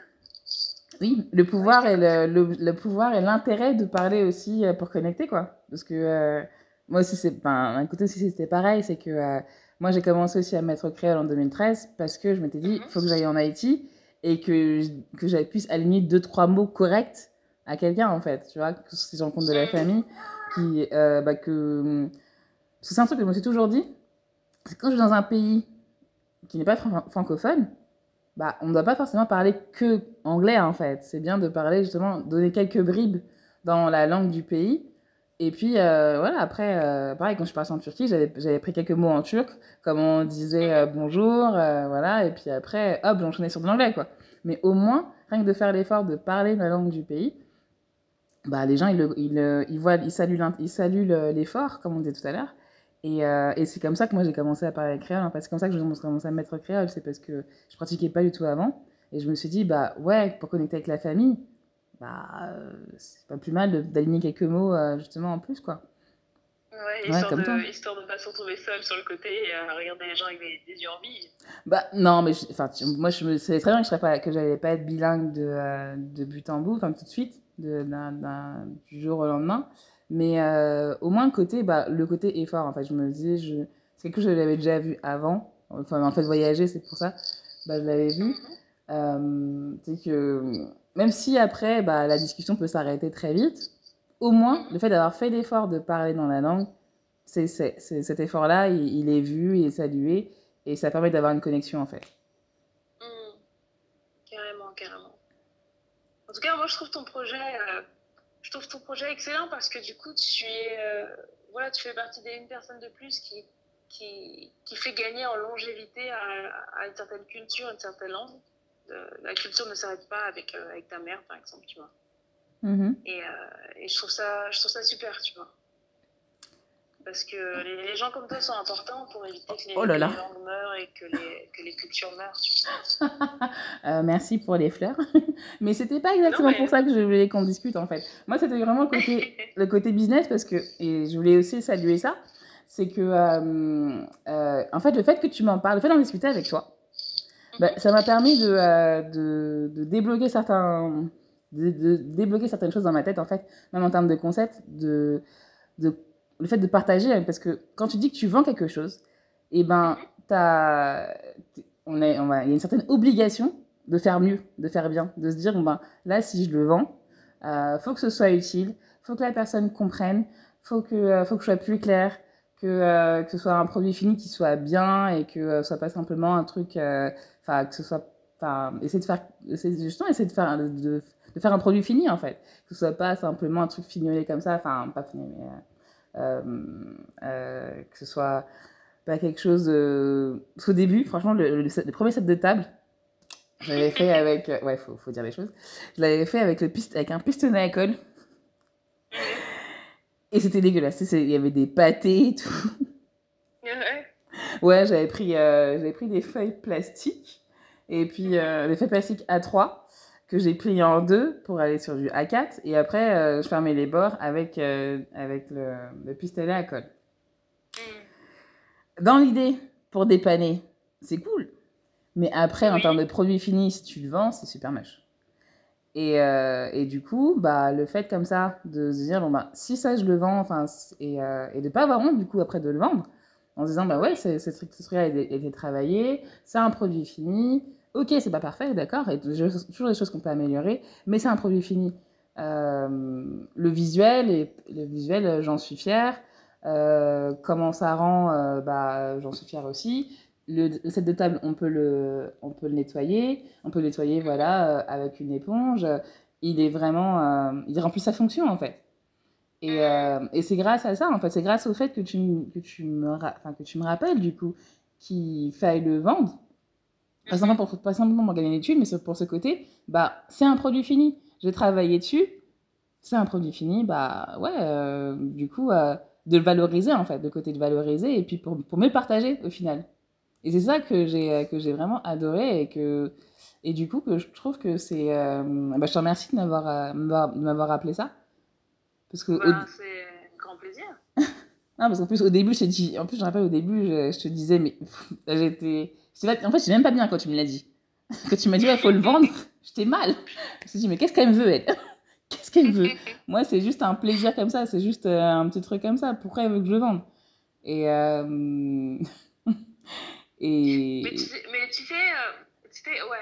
Oui, le pouvoir ouais, et le, le, le, pouvoir et l'intérêt de parler aussi euh, pour connecter quoi. Parce que euh, moi aussi c'est, ben, un côté aussi c'était pareil, c'est que euh, moi j'ai commencé aussi à me mettre créole en 2013 parce que je m'étais dit il mm-hmm. faut que j'aille en Haïti et que que j'aille puisse aligner deux trois mots corrects à quelqu'un en fait, tu vois, que si j'en compte de la mm-hmm. famille, qui euh, bah, que c'est un truc que je me suis toujours dit, c'est quand je suis dans un pays qui n'est pas fran- francophone bah, on ne doit pas forcément parler que anglais en fait. C'est bien de parler justement, donner quelques bribes dans la langue du pays. Et puis euh, voilà, après, euh, pareil, quand je suis partie en Turquie, j'avais pris quelques mots en turc, comme on disait euh, bonjour, euh, voilà, et puis après, hop, j'enchaînais sur de l'anglais quoi. Mais au moins, rien que de faire l'effort de parler la langue du pays, bah, les gens, ils, ils, ils, voient, ils saluent l'effort, comme on disait tout à l'heure, Et, euh, et c'est comme ça que moi j'ai commencé à parler créole. En fait, c'est comme ça que j'ai commencé à me mettre créole. C'est parce que je pratiquais pas du tout avant. Et je me suis dit, bah ouais, pour connecter avec la famille, bah euh, c'est pas plus mal d'aligner quelques mots euh, justement en plus, quoi. Ouais, histoire, ouais, comme de, histoire de pas se retrouver seul sur le côté et regarder les gens avec des, des yeux en bille. Bah non, mais enfin moi je me savais très bien que je serais pas pas être bilingue de, euh, de but en bout, enfin tout de suite, de, d un, d un, du jour au lendemain. Mais euh, au moins, le côté, bah, le côté effort, en fait, je me dis, je... c'est quelque chose que j'avais déjà vu avant. Enfin, en fait, voyager, c'est pour ça. Bah, je l'avais vu. Euh, c'est que même si après, bah, la discussion peut s'arrêter très vite, au moins, le fait d'avoir fait l'effort de parler dans la langue, c'est, c'est, c'est cet effort-là, il, il, est vu, il est salué, et ça permet d'avoir une connexion, en fait. Mmh. Carrément, carrément. En tout cas, moi, je trouve ton projet... Euh je trouve ton projet excellent parce que du coup, tu es, euh, voilà, tu fais partie d'une personne de plus qui, qui, qui, fait gagner en longévité à, à une certaine culture, une certaine langue. Euh, la culture ne s'arrête pas avec, euh, avec ta mère, par exemple, tu vois. Mm -hmm. et, euh, et, je, trouve ça, je trouve ça super, tu vois. parce que les, les gens comme toi sont importants pour éviter que les, oh là là. les langues meurent et que les, que les cultures meurent. euh, merci pour les fleurs. mais c'était pas exactement non, mais... pour ça que je voulais qu'on discute en fait. Moi, c'était vraiment le côté, le côté business parce que, et je voulais aussi saluer ça, c'est que, euh, euh, en fait, le fait que tu m'en parles, le fait d'en discuter avec toi, mhm. bah, ça m'a permis de, euh, de, de, débloquer certains de, de, débloquer certaines choses dans ma tête en fait même en termes de concepts de, de le fait de partager, parce que quand tu dis que tu vends quelque chose, et eh ben, mhm. on est, on il y a une certaine obligation de faire mieux, de faire bien, de se dire, bon ben, là, si je le vends, euh, faut que ce soit utile, il faut que la personne comprenne, il faut que, euh, faut que je sois plus clair, que, euh, que ce soit un produit fini qui soit bien et que euh, ce soit pas simplement un truc, euh, enfin, que ce soit, enfin, essayer de faire, essayer, justement, essayer de faire, de, de, de, faire un produit fini, en fait, que ce soit pas simplement un truc fignolé comme ça, enfin, pas fini, mais euh, Euh, euh, que ce soit pas quelque chose de... Parce début, franchement, le, le, le premier set de table, je l'avais fait avec. Euh, ouais, faut, faut dire les choses. Je l'avais fait avec, le piste, avec un pistonnet à colle. Et c'était dégueulasse. Il y avait des pâtés et tout. Ouais, j'avais pris, euh, j'avais pris des feuilles plastiques. Et puis, euh, des feuilles plastiques A3. que j'ai plié en deux pour aller sur du A4. Et après, euh, je fermais les bords avec, euh, avec le, le, pistolet à colle. Mm. Dans l'idée, pour dépanner, c'est cool. Mais après, en termes de produit fini, si tu le vends, c'est super moche. Et, euh, et, du coup, bah, le fait comme ça de se dire, bon, bah, si ça, je le vends, enfin, et, euh, et de ne pas avoir honte, du coup, après de le vendre, en se disant, bah ouais, ce truc-là a été travaillé, c'est un produit fini, ok, c'est pas parfait, d'accord, et toujours des choses qu'on peut améliorer, mais c'est un produit fini. Euh, le visuel, et, le visuel, euh, j'en suis fière. Euh, comment ça rend, euh, bah, j'en suis fière aussi. Le, le, set de table, on peut le, on peut le nettoyer, on peut le nettoyer, voilà, euh, avec une éponge. Il est vraiment, euh, il remplit sa fonction en fait. Et, mm. et c'est grâce à ça, en fait, c'est grâce au fait que tu, que tu me, que tu me rappelles du coup qu'il faille le vendre Pas simplement, pour, pas simplement pour gagner une étude, mais pour ce côté, bah, c'est un produit fini. J'ai travaillé dessus, c'est un produit fini. Bah ouais, euh, du coup, euh, de le valoriser en fait, de côté de valoriser et puis pour, pour me partager au final. Et c'est ça que j'ai euh, que j'ai vraiment adoré et que et du coup que je trouve que c'est. Euh, bah, je te remercie de m'avoir euh, de m'avoir rappelé ça parce que. Bah, c'est grand plaisir. non parce qu'en plus au début je dis en plus je rappelle au début je, je te disais mais j'étais Pas... En fait, j'ai même pas bien quand tu me l'as dit. Quand tu m'as dit, il ouais, faut le vendre, j'étais mal. Je me suis dit, mais qu'est-ce qu'elle me veut, elle Qu'est-ce qu'elle veut Moi, c'est juste un plaisir comme ça, c'est juste euh, un petit truc comme ça. Pourquoi elle veut que je le vende Et. Euh... Et... Mais tu sais, mais tu sais, euh, ouais,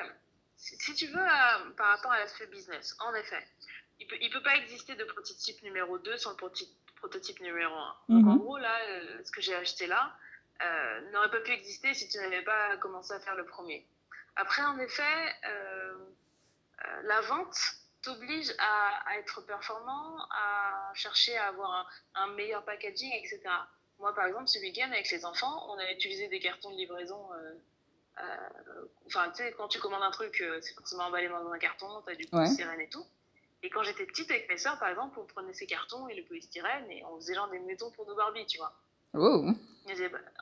si, tu veux, euh, par rapport à l'aspect business, en effet, il ne peut, il peut pas exister de prototype numéro 2 sans le prototype, numéro 1. Donc mm -hmm. en mhm. gros, là, euh, ce que j'ai acheté là, euh, n'aurait pas pu exister si tu n'avais pas commencé à faire le premier. Après, en effet, euh, euh la vente t'oblige à, à, être performant, à chercher à avoir un, un, meilleur packaging, etc. Moi, par exemple, ce week-end, avec les enfants, on a utilisé des cartons de livraison. Euh, euh, enfin, tu sais, quand tu commandes un truc, c'est forcément emballé dans un carton, tu as du ouais. sirène et tout. Et quand j'étais petite avec mes soeurs, par exemple, on prenait ces cartons et le polystyrène et on faisait genre des maisons pour nos Barbie, tu vois. Oh.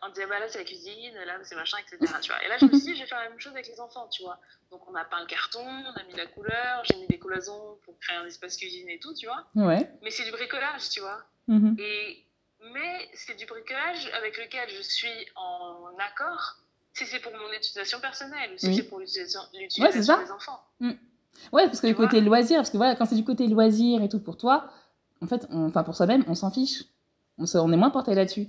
un déballage avec la cuisine, là c'est machin, etc. Tu vois. Et là je me suis dit, je vais faire la même chose avec les enfants, tu vois. Donc on a peint le carton, on a mis la couleur, j'ai mis des cloisons pour créer un espace cuisine et tout, tu vois. Ouais. Mais c'est du bricolage, tu vois. Mm -hmm. Et, mais c'est du bricolage avec lequel je suis en accord si c'est pour mon utilisation personnelle ou si oui. c'est pour l'utilisation ouais, des enfants. Mm. Ouais, parce que tu du côté loisir, parce que voilà, quand c'est du côté loisir et tout pour toi, en fait, on, enfin pour soi-même, on s'en fiche. On, se, on est moins porté là-dessus.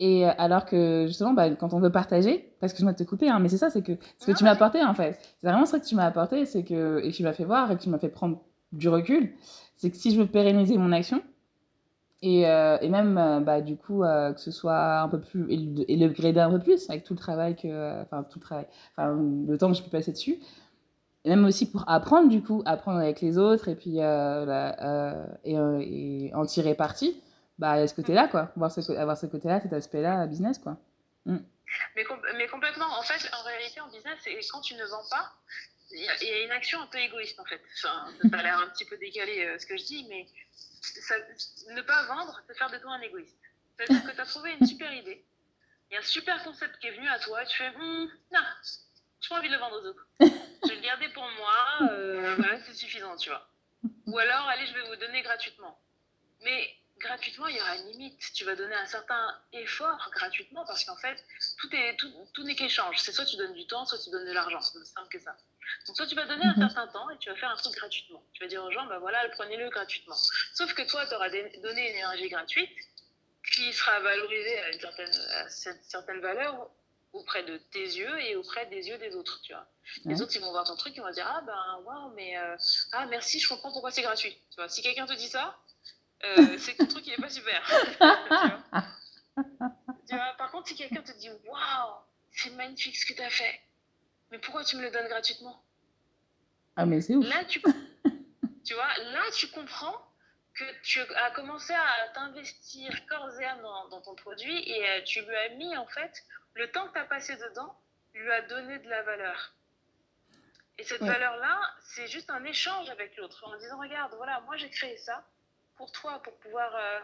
Et euh, alors que justement, bah, quand on veut partager, parce que je vais te couper, hein, mais c'est ça, c'est que ce que non, tu ah m'as apporté en fait, c'est vraiment ça que tu m'as apporté, c'est que et que tu m'as fait voir et que tu m'as fait prendre du recul, c'est que si je veux pérenniser mon action et, euh, et même euh, bah, du coup euh, que ce soit un peu plus et le grader un peu plus avec tout le travail que euh, enfin tout le travail, enfin le temps que je peux passer dessus, et même aussi pour apprendre du coup, apprendre avec les autres et puis euh, la, et, et en tirer parti bah, ce côté-là, mm. quoi. Voir ce, avoir ce côté-là, cet aspect-là, business, quoi. Mm. Mais, com mais, complètement. En fait, en réalité, en business, quand tu ne vends pas, il y, y, a une action un peu égoïste, en fait. Enfin, ça a l'air un petit peu décalé euh, ce que je dis, mais ça, ne pas vendre, c'est faire de toi un égoïste. C'est-à-dire que tu as trouvé une super idée, il y a un super concept qui est venu à toi, et tu fais, hm, non, je pas envie de le vendre aux autres. Je vais le garder pour moi, euh, voilà, c'est suffisant, tu vois. Ou alors, allez, je vais vous donner gratuitement. Mais gratuitement, il y aura une limite. Tu vas donner un certain effort gratuitement parce qu'en fait, tout est tout, tout n'est qu'échange. C'est soit tu donnes du temps, soit tu donnes de l'argent. C'est aussi simple que ça. Donc soit tu vas donner un mhm. certain temps et tu vas faire un truc gratuitement. Tu vas dire aux gens, ben voilà, prenez-le gratuitement. Sauf que toi, tu auras donné une énergie gratuite qui sera valorisée à une certaine, à cette, certaine valeur auprès de tes yeux et auprès des yeux des autres, tu vois. Les autres, ils vont voir ton truc, ils vont dire, ah ben, waouh, mais, euh, ah, merci, je comprends pourquoi c'est gratuit. Tu vois, si quelqu'un te dit ça, euh, c'est un truc qui n'est pas super. tu vois tu vois par contre, si quelqu'un te dit Waouh, c'est magnifique ce que tu as fait, mais pourquoi tu me le donnes gratuitement Ah, mais c'est ouf. Là, tu, tu vois, là, tu comprends que tu as commencé à t'investir corps et âme dans, dans, ton produit et euh, tu lui as mis, en fait, le temps que tu as passé dedans, lui a donné de la valeur. Et cette ouais. valeur-là, c'est juste un échange avec l'autre en disant Regarde, voilà, moi j'ai créé ça pour toi, pour pouvoir, euh,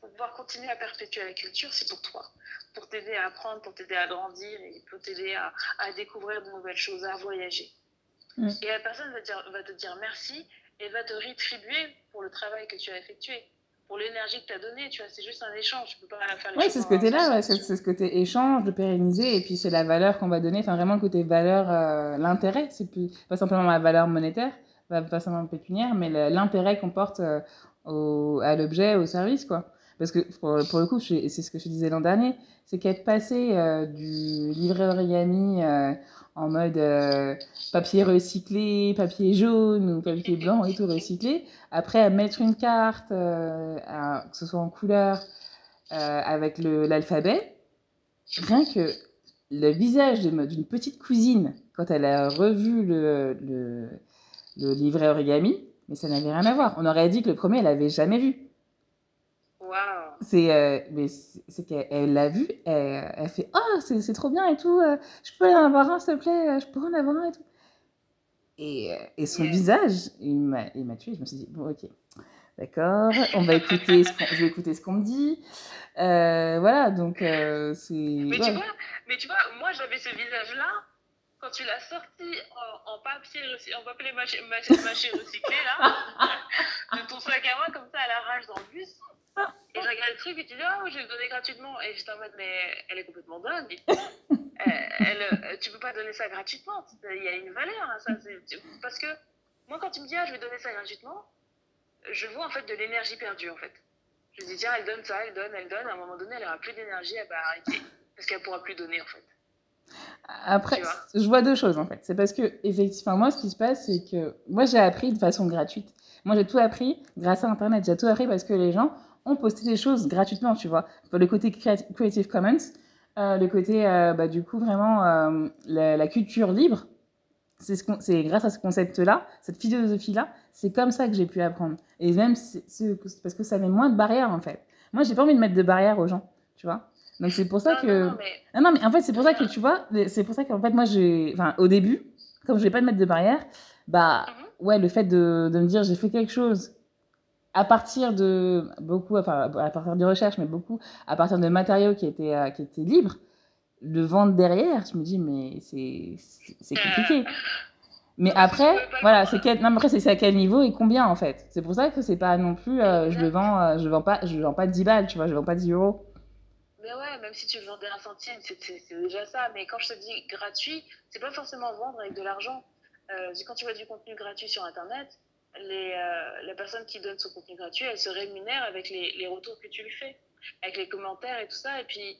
pour pouvoir continuer à perpétuer la culture, c'est pour toi. Pour t'aider à apprendre, pour t'aider à grandir et pour t'aider à, à, découvrir de nouvelles choses, à voyager. Mmh. Et la personne va, dire, va te dire merci et va te rétribuer pour le travail que tu as effectué pour l'énergie que tu as donnée, tu vois, c'est juste un échange, tu peux pas faire Oui, c'est ce côté-là, ouais, c'est ce côté échange, de pérenniser, et puis c'est la valeur qu'on va donner, enfin vraiment le côté valeur, euh, l'intérêt, c'est plus, pas simplement la valeur monétaire, pas forcément pécuniaire, mais l'intérêt qu'on porte euh, au, à l'objet, au service, quoi. Parce que pour, pour le coup, c'est ce que je disais l'an dernier, c'est qu'être passé euh, du livret origami euh, en mode euh, papier recyclé, papier jaune ou papier blanc et tout recyclé, après à mettre une carte, euh, à, que ce soit en couleur, euh, avec l'alphabet, rien que le visage d'une petite cousine, quand elle a revu le, le le livret origami, mais ça n'avait rien à voir. On aurait dit que le premier, elle l'avait jamais vu. Wow. C'est euh, mais c'est qu'elle l'a vu, elle, elle fait oh c'est trop bien et tout, euh, je peux en avoir un s'il te plaît, euh, je peux en avoir un et tout. Et, euh, et son yeah. visage, il m'a tué. Je me suis dit bon ok, d'accord, on va écouter, ce je vais écouter ce qu'on me dit. Euh, voilà donc euh, c'est. Mais, ouais. tu vois, mais tu vois, moi j'avais ce visage là quand tu l'as sorti en, en papier, en papier mâché, mâché recyclé, là, de ton sac à main, comme ça, à la rage dans le bus, et je regarde le truc et tu dis, oh, je vais le donner gratuitement. Et j'étais en mode, mais elle est complètement dingue. elle, euh, tu peux pas donner ça gratuitement. Il y a une valeur à ça. Parce que moi, quand tu me dis, ah, je vais donner ça gratuitement, je vois en fait de l'énergie perdue en fait. Je me dis, tiens, elle donne ça, elle donne, elle donne. À un moment donné, elle aura plus d'énergie, elle va arrêter. Parce qu'elle pourra plus donner en fait. Après, je vois deux choses en fait. C'est parce que, effectivement, moi, ce qui se passe, c'est que moi, j'ai appris de façon gratuite. Moi, j'ai tout appris grâce à Internet. J'ai tout appris parce que les gens ont posté des choses gratuitement, tu vois. Pour le côté Creative Commons, euh, le côté, euh, bah, du coup, vraiment, euh, la, la, culture libre, c'est ce grâce à ce concept-là, cette philosophie-là, c'est comme ça que j'ai pu apprendre. Et même, c est, c est parce que ça met moins de barrières en fait. Moi, j'ai pas envie de mettre de barrières aux gens, tu vois. Donc c'est pour ça non, que. Non, non, mais... non, ah non, mais en fait, c'est pour ça que tu vois, c'est pour ça qu'en fait, moi, j'ai. Enfin, au début, comme je vais pas te mettre de barrière, bah, mm -hmm. ouais, le fait de, de me dire j'ai fait quelque chose à partir de. Beaucoup, enfin, à partir de recherche, mais beaucoup, à partir de matériaux qui étaient, euh, qui étaient libres, le vendre derrière, je me dis, mais c'est compliqué. Euh, mais après, voilà, c'est quel... non, après c'est à quel niveau et combien en fait. C'est pour ça que c'est pas non plus, euh, je le vends, euh, je vends pas, je vends pas 10 balles, tu vois, je vends pas 10 euros. Mais ouais, même si tu vendais un centime, c'est déjà ça. Mais quand je te dis gratuit, c'est pas forcément vendre avec de l'argent. Euh, quand tu vois du contenu gratuit sur Internet, les, euh, la personne qui donne son contenu gratuit, elle se rémunère avec les, les, retours que tu lui fais, avec les commentaires et tout ça. Et puis,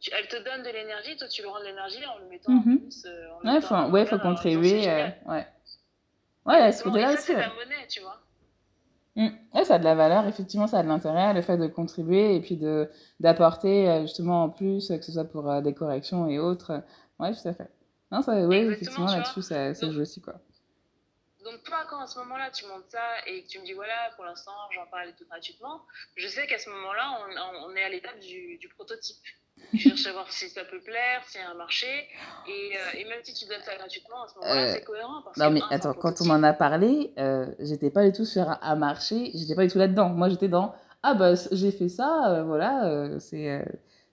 tu, elle te donne de l'énergie, toi tu lui rends de l'énergie en le mettant mm -hmm. en plus. Euh, en ouais, faut, ouais, faut euh, contribuer. Euh, ouais, ouais, ce là c'est. monnaie, tu vois. Mmh. Ouais, ça a de la valeur, effectivement, ça a de l'intérêt, le fait de contribuer et puis de d'apporter euh, justement en plus, que ce soit pour euh, des corrections et autres. Ouais, tout à fait. Non, ça, oui, effectivement, là-dessus, ça, ça joue aussi, quoi. Donc, toi, quand à ce moment-là, tu montes ça et que tu me dis, voilà, pour l'instant, j'en parle tout gratuitement, je sais qu'à ce moment-là, on, on, est à l'étape du, du prototype. Tu cherches à voir si ça peut plaire, si y a un marché. Et, euh, et, même si tu donnes ça gratuitement, à ce moment-là, euh, c'est cohérent. Parce non, mais un, attends, quand on m'en a parlé, euh, j'étais pas du tout sur un, marché, j'étais pas du tout là-dedans. Moi, j'étais dans Ah, bah, j'ai fait ça, voilà, c'est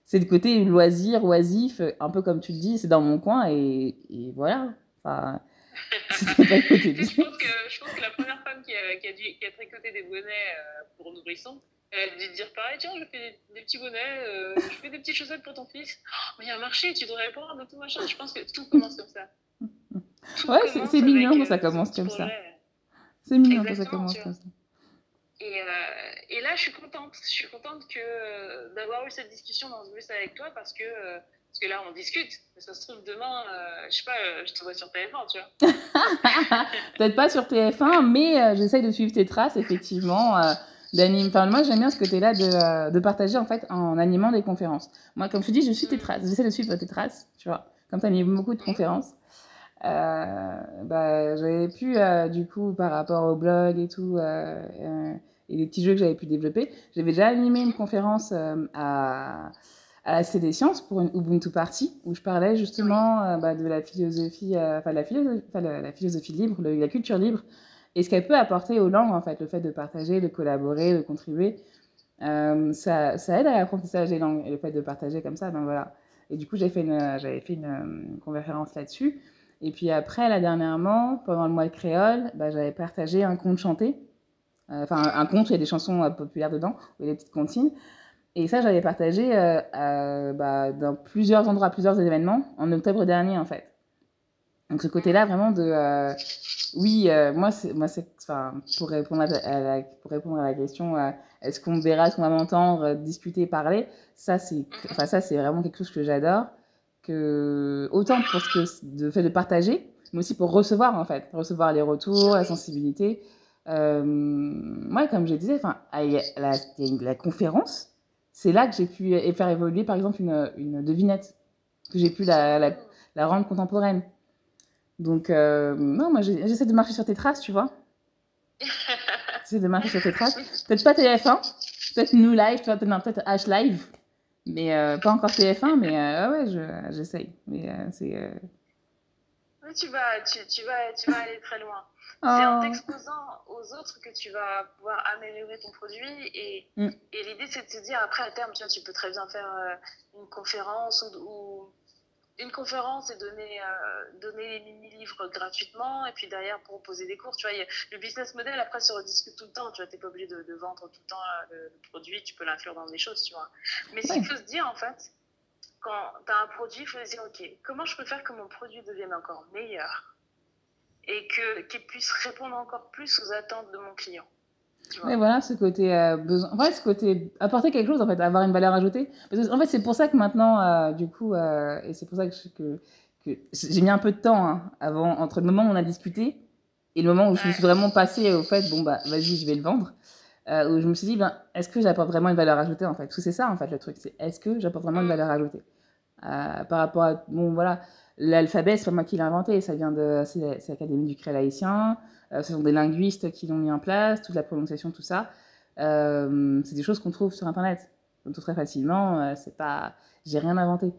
c'est le côté loisir, oisif, un peu comme tu le dis, c'est dans mon coin et, et voilà. Enfin, pas le côté je, pense que, je pense que la première femme qui a, qui a, dû, qui a tricoté des bonnets pour nourrissons, Elle euh, dit de dire pareil, tiens, je fais des, petits bonnets, euh, je fais des petites chaussettes pour ton fils. Oh, mais il y a un marché, tu devrais prendre tout machin. Je pense que tout commence comme ça. Tout ouais, c'est mignon quand euh, ça commence comme ça. C'est mignon quand ça commence comme ça. Et, euh, et, là, je suis contente. Je suis contente que euh, d'avoir eu cette discussion dans ce bus avec toi parce que, euh, parce que là, on discute. Ça se trouve, demain, euh, je sais pas, je te vois sur TF1, tu vois. Peut-être pas sur TF1, mais j'essaye de suivre tes traces, effectivement. d'animer. Enfin, moi, j'aime bien ce côté-là de, euh, de, partager, en fait, en animant des conférences. Moi, comme je te dis, je suis mm. tes traces. J'essaie de suivre tes traces, tu vois. Comme tu animes beaucoup de mm. conférences. Euh, bah, j'avais pu, euh, du coup, par rapport au blog et tout, euh, euh et les petits jeux que j'avais pu développer, j'avais déjà animé une conférence euh, à à la CD Sciences pour une Ubuntu Party où je parlais justement oui. euh, bah, de la philosophie, euh, la, philosophie, la, la philosophie libre, le, la culture libre et ce qu'elle peut apporter aux langues, en fait, le fait de partager, de collaborer, de contribuer, euh, ça, ça, aide à l'apprentissage des langues et le fait de partager comme ça, ben voilà. Et du coup, j'ai fait j'avais fait une, une euh, conférence là-dessus. Et puis après, là dernièrement, pendant le mois de créole, ben, j'avais partagé un conte chanté. Euh, enfin, euh, un conte, il y a des chansons euh, populaires dedans, ou des petites comptines. Et ça, j'avais partagé euh euh bah, dans plusieurs endroits, plusieurs événements, en octobre dernier en fait. Donc ce côté-là vraiment de euh, oui euh, moi c'est moi enfin pour répondre à, à la, pour répondre à la question euh, est-ce qu'on verra est-ce qu'on va m'entendre euh, discuter parler ça c'est mhm. enfin ça c'est vraiment quelque chose que j'adore que autant pour ce que de fait de partager mais aussi pour recevoir en fait recevoir les retours la sensibilité moi euh, comme je disais enfin la, la, conférence c'est là que j'ai pu faire évoluer par exemple une, une devinette que j'ai pu la, la, la rendre contemporaine Donc, euh, non, moi, j'essaie de marcher sur tes traces, tu vois. j'essaie de marcher sur tes traces. Peut-être pas TF1, peut-être New Live, peut-être peut H Live, mais euh, pas encore TF1, mais euh, ouais, j'essaye. Je, mais euh, c'est. Euh, tu vas, tu, tu, vas, tu vas aller très loin. Oh. C'est en t'exposant aux autres que tu vas pouvoir améliorer ton produit. Et, mm. et l'idée, c'est de te dire, après, à terme, tu, vois, tu peux très bien faire euh, une conférence ou, ou une conférence et donner, euh, donner les mini-livres gratuitement et puis derrière proposer des cours. Tu vois, a, le business model, après, se rediscute tout le temps. Tu vois, n'es pas obligé de, de, vendre tout le temps euh, le, le produit, tu peux l'inclure dans des choses, tu vois. Mais ce qu'il faut se dire, en fait, quand tu as un produit, il faut se dire, OK, comment je peux faire que mon produit devienne encore meilleur et qu'il qu puisse répondre encore plus aux attentes de mon client mais voilà ce côté euh, besoin. En fait, ce côté apporter quelque chose, en fait, avoir une valeur ajoutée. Parce que, en fait, c'est pour ça que maintenant, euh, du coup, euh, et c'est pour ça que, je, que, que j'ai mis un peu de temps hein, avant, entre le moment où on a discuté et le moment où je suis vraiment passée au fait, bon, bah, vas-y, je vais le vendre. Euh, où je me suis dit, ben, est-ce que j'apporte vraiment une valeur ajoutée, en fait Parce que c'est ça, en fait, le truc, c'est est-ce que j'apporte vraiment une mm. valeur ajoutée euh, Par rapport à, bon, voilà, l'alphabet, c'est pas moi qui l'ai inventé, ça vient de, c'est l'Académie du Créel haïtien. Euh, ce sont des linguistes qui l'ont mis en place, toute la prononciation, tout ça. Euh, c'est des choses qu'on trouve sur Internet. Donc, tout très facilement, euh, c'est pas... J'ai rien inventé.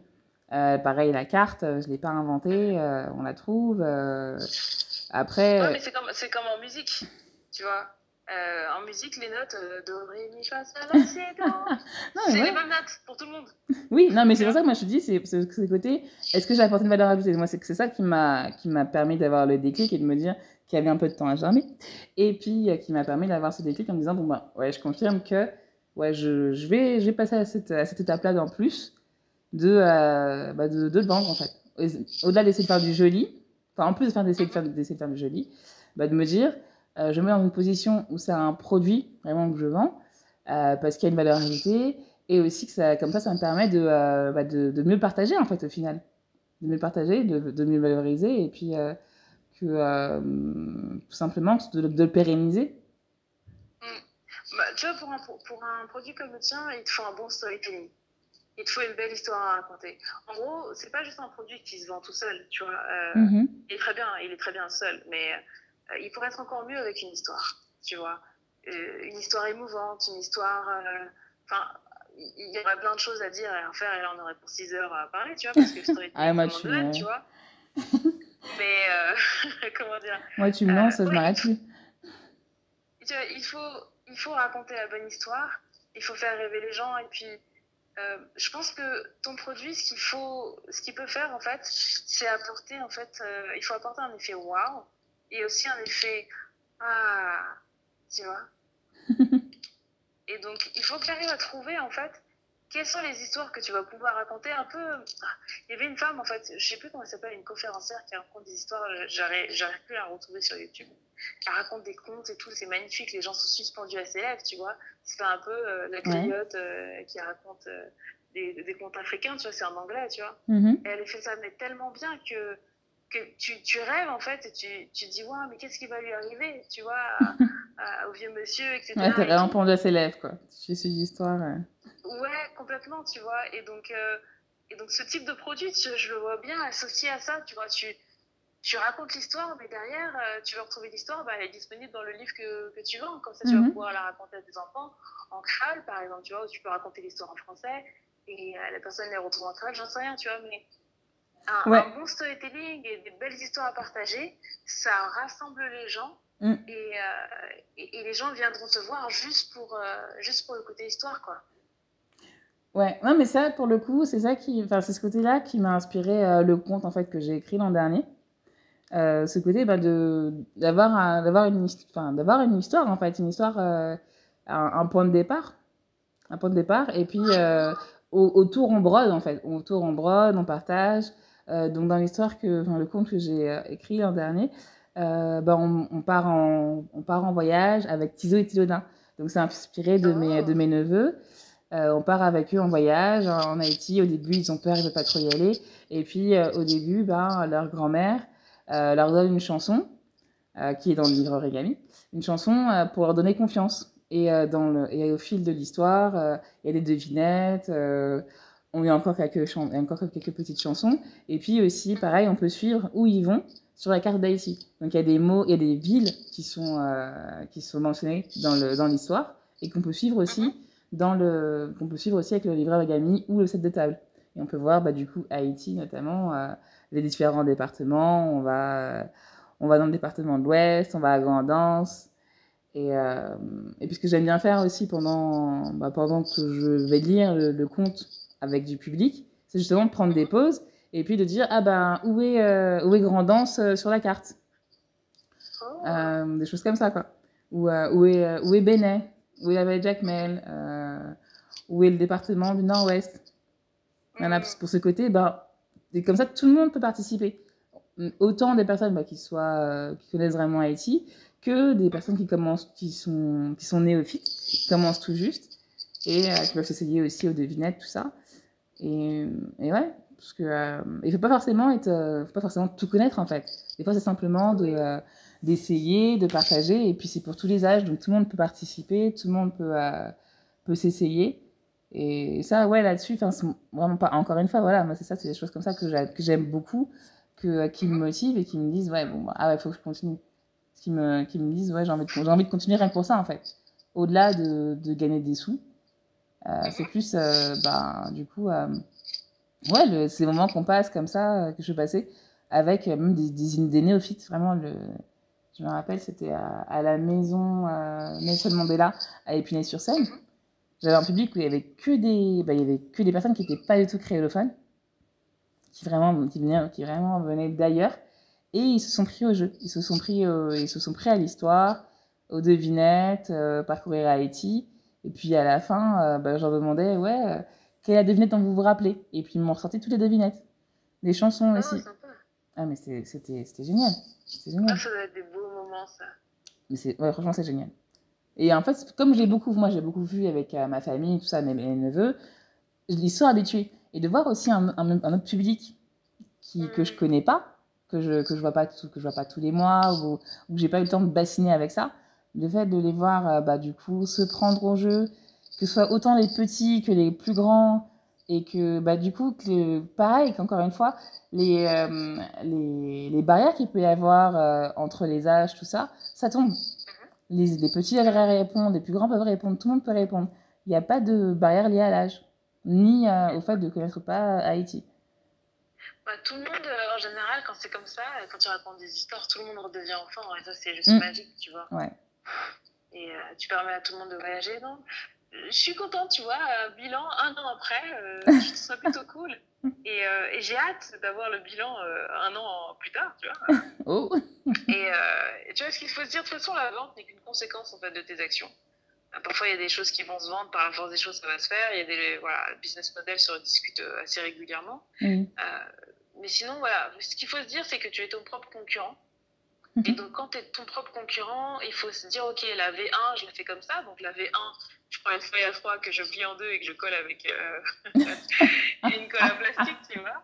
pareil, la carte, je ne l'ai pas inventée, on la trouve. Après... Ouais, mais c'est comme, c'est comme en musique, tu vois. Euh, en musique, les notes euh, do, ré, mi, fa, sol, la, si, C'est ouais. les mêmes notes pour tout le monde. Oui, non, mais c'est pour ça que moi je te dis, c'est ce côté, est-ce que j'ai apporté une valeur ajoutée Moi, c'est ça qui m'a permis d'avoir le déclic et de me dire, qui avait un peu de temps à germer, et puis euh, qui m'a permis d'avoir ce déclic en me disant bon ben ouais, je confirme que ouais, je, je vais, je vais passer à cette, à cette étape-là d'en plus de, euh, bah, de, de, vendre en fait. Au-delà d'essayer de faire du joli, enfin en plus d'essayer de faire, de faire du joli, bah, de me dire euh, je me mets dans une position où c'est un produit vraiment que je vends euh, parce qu'il y a une valeur ajoutée et aussi que ça, comme ça, ça me permet de, euh, bah, de, de, mieux partager en fait au final, de mieux partager, de, de mieux valoriser et puis euh, que euh, tout simplement de, de le pérenniser mmh. bah, Tu vois, pour un, pour, un, produit comme le tien, il te faut un bon storytelling. Il te faut une belle histoire à raconter. En gros, c'est pas juste un produit qui se vend tout seul, tu vois. Euh, mmh. Il est très bien, il est très bien seul, mais euh, il pourrait être encore mieux avec une histoire, tu vois. Euh, une histoire émouvante, une histoire... Euh, enfin, il y aurait plein de choses à dire et à faire, et là on aurait pour 6 heures à parler, tu vois, parce que le storytelling, ah, tu vois. Mais euh, comment dire Moi, tu me euh, lances, je m'arrête plus. Il faut, il faut raconter la bonne histoire, il faut faire rêver les gens et puis euh, je pense que ton produit, ce qu'il faut, ce qu'il peut faire en fait, c'est apporter en fait, euh, il faut apporter un effet wow et aussi un effet ah, tu vois. et donc il faut que tu arrives à trouver en fait quelles sont les histoires que tu vas pouvoir raconter un peu ah Il y avait une femme, en fait, je sais plus comment elle s'appelle, une conférencière qui raconte des histoires, euh, j'arrive plus à la retrouver sur YouTube. qui raconte des contes et tout, c'est magnifique, les gens sont suspendus à ses lèvres, tu vois. C'est un peu euh, la griotte euh, qui raconte euh, des, des, contes africains, tu vois, c'est en anglais, tu vois. Mm -hmm. et elle fait ça, mais tellement bien que que tu, tu, rêves en fait et tu, tu dis, waouh, mais qu'est-ce qui va lui arriver, tu vois, à, à, au vieux monsieur, etc. Ouais, t'as vraiment pendu à ses lèvres, quoi. Tu suis histoire. Ouais. Euh. ouais. complètement, tu vois. Et donc, euh, et donc ce type de produit, tu, je le vois bien associé à ça, tu vois. Tu, tu racontes l'histoire, mais derrière, euh, tu veux retrouver l'histoire, bah, elle est disponible dans le livre que, que tu vends. Comme ça, tu mm -hmm. vas mhm. pouvoir la raconter à tes enfants en crâle, par exemple, tu vois, où tu peux raconter l'histoire en français et euh, la personne les retrouve en crâle, j'en sais rien, tu vois. Mais Un, ouais. un, bon storytelling et des belles histoires à partager, ça rassemble les gens mm. et, euh, et, et, les gens viendront te voir juste pour, euh, juste pour le côté histoire, quoi. Ouais, non, mais ça, pour le coup, c'est ça qui, enfin, c'est ce côté-là qui m'a inspiré euh, le conte en fait que j'ai écrit l'an dernier. Euh, ce côté bah, de d'avoir un, d'avoir une enfin, d'avoir une histoire en fait une histoire euh, un, un, point de départ un point de départ et puis euh, au autour on brode en fait autour on brode on partage Euh, donc dans l'histoire que, enfin, le conte que j'ai euh, écrit l'an dernier, euh, bah, on, on, part en, on part en voyage avec Tiso et Tilodin. Donc c'est inspiré de, oh. mes, de mes neveux. Euh, on part avec eux en voyage en Haïti. Au début, ils ont peur, ils ne veulent pas trop y aller. Et puis, euh, au début, ben, leur grand-mère euh, leur donne une chanson, qui est dans le livre Origami, une chanson pour leur donner confiance. Et, dans le, et au fil de l'histoire, il y a des devinettes. on a encore quelques, chan encore quelques petites chansons. Et puis aussi, pareil, on peut suivre où ils vont sur la carte d'Haïti. Donc il y a des mots, il y a des villes qui sont, euh, qui sont mentionnées dans l'histoire dans et qu'on peut suivre aussi mhm. dans le qu'on peut suivre aussi avec le livret Wagami ou le set de table. Et on peut voir bah, du coup Haïti notamment euh, les différents départements. On va on va dans le département de l'Ouest, on va à Grandance. Et, euh, et puis ce que j'aime bien faire aussi pendant bah, pendant que je vais lire le, le conte avec du public, c'est justement de prendre des pauses et puis de dire ah ben où est euh, où est Grand Danse euh, sur la carte, oh. euh, des choses comme ça quoi. Ou euh, où est euh, où est Benet, où est la Vallée Jacmel, euh, où est le département du Nord-Ouest. Mm. Voilà, pour ce côté, ben, et comme ça tout le monde peut participer. Autant des personnes ben, qui soient qui connaissent vraiment Haïti que des personnes qui commencent, qui sont qui sont néophytes, qui commencent tout juste et qui peuvent s'essayer aussi aux devinettes tout ça. Et, et ouais, parce que euh, il faut pas forcément être, euh, faut pas forcément tout connaître en fait. Des fois, c'est simplement de euh, d'essayer, de partager. Et puis c'est pour tous les âges, donc tout le monde peut participer, tout le monde peut euh, peut s'essayer. Et ça, ouais, là-dessus, enfin, vraiment pas. Encore une fois, voilà, moi c'est ça, c'est des choses comme ça que j'aime beaucoup, que euh, qui me mhm. motivent et qui me disent, ouais, bon, ah ouais, faut que je continue. Qui me qui me disent, ouais, j'ai envie de j'ai envie de continuer rien que pour ça en fait. Au-delà de, de gagner des sous, Euh, mm-hmm. c'est plus, euh bah, du coup, euh ouais, le, ces moments qu'on passe comme ça, euh, que je passais, avec euh, même des, des, des, néophytes, vraiment. Le, je me rappelle, c'était à, à, la maison Nelson Mandela à Épinay-sur-Seine. Mm-hmm. J'avais un public où il n'y avait, que des, bah, il y avait que des personnes qui n'étaient pas du tout créolophones, qui vraiment, qui venaient, qui vraiment venaient d'ailleurs. Et ils se sont pris au jeu, ils se sont pris, au, ils se sont pris à l'histoire, aux devinettes, euh, parcourir Haïti. Et puis à la fin, euh, bah, je leur demandais, ouais, euh, quelle est la devinette dont vous vous rappelez Et puis ils m'ont ressorti toutes les devinettes. les chansons oh, aussi. Sympa. Ah, mais c'était génial. génial. Oh, ça doit être des beaux moments, ça. Mais ouais, franchement, c'est génial. Et en fait, comme j'ai beaucoup, moi, j'ai beaucoup vu avec euh, ma famille, tout ça, mes, mes neveux, ils sont habitués. Et de voir aussi un, un, un autre public qui, mmh. que je connais pas, que je que je vois pas vois pas tous les mois ou, ou que j'ai pas eu le temps de bassiner avec ça le fait de les voir euh, bah, du coup se prendre au jeu, que ce soit autant les petits que les plus grands, et que bah, du coup, que, pareil, qu'encore une fois, les, euh, les, les, barrières qu'il peut y avoir euh, entre les âges, tout ça, ça tombe. Les, les petits peuvent répondre, les plus grands peuvent répondre, tout le monde peut répondre. Il n'y a pas de barrière liée à l'âge, ni euh, au fait de connaître pas euh, Haïti. Bah, tout le monde, euh, en général, quand c'est comme ça, quand tu racontes des histoires, tout le monde redevient enfant, et ça, c'est juste mmh. magique, tu vois. Ouais. Et euh, tu permets à tout le monde de voyager. Donc, je suis contente, tu vois, euh, bilan un an après, je trouve ça plutôt cool. Et, euh, et j'ai hâte d'avoir le bilan euh, un an plus tard, tu vois. Oh. Et euh, tu vois, ce qu'il faut se dire, de toute façon, la vente n'est qu'une conséquence en fait, de tes actions. Euh, parfois, il y a des choses qui vont se vendre, par la force des choses, ça va se faire. Il y a des voilà, business models se rediscutent assez régulièrement. Mm. mais sinon, voilà, ce qu'il faut se dire, c'est que tu es ton propre concurrent. Mmh. Et mhm. donc, quand tu es ton propre concurrent, il faut se dire, OK, la V1, je la fais comme ça. Donc, la V1, je prends une feuille à 3 que je plie en deux et que je colle avec euh, une colle à plastique, tu vois.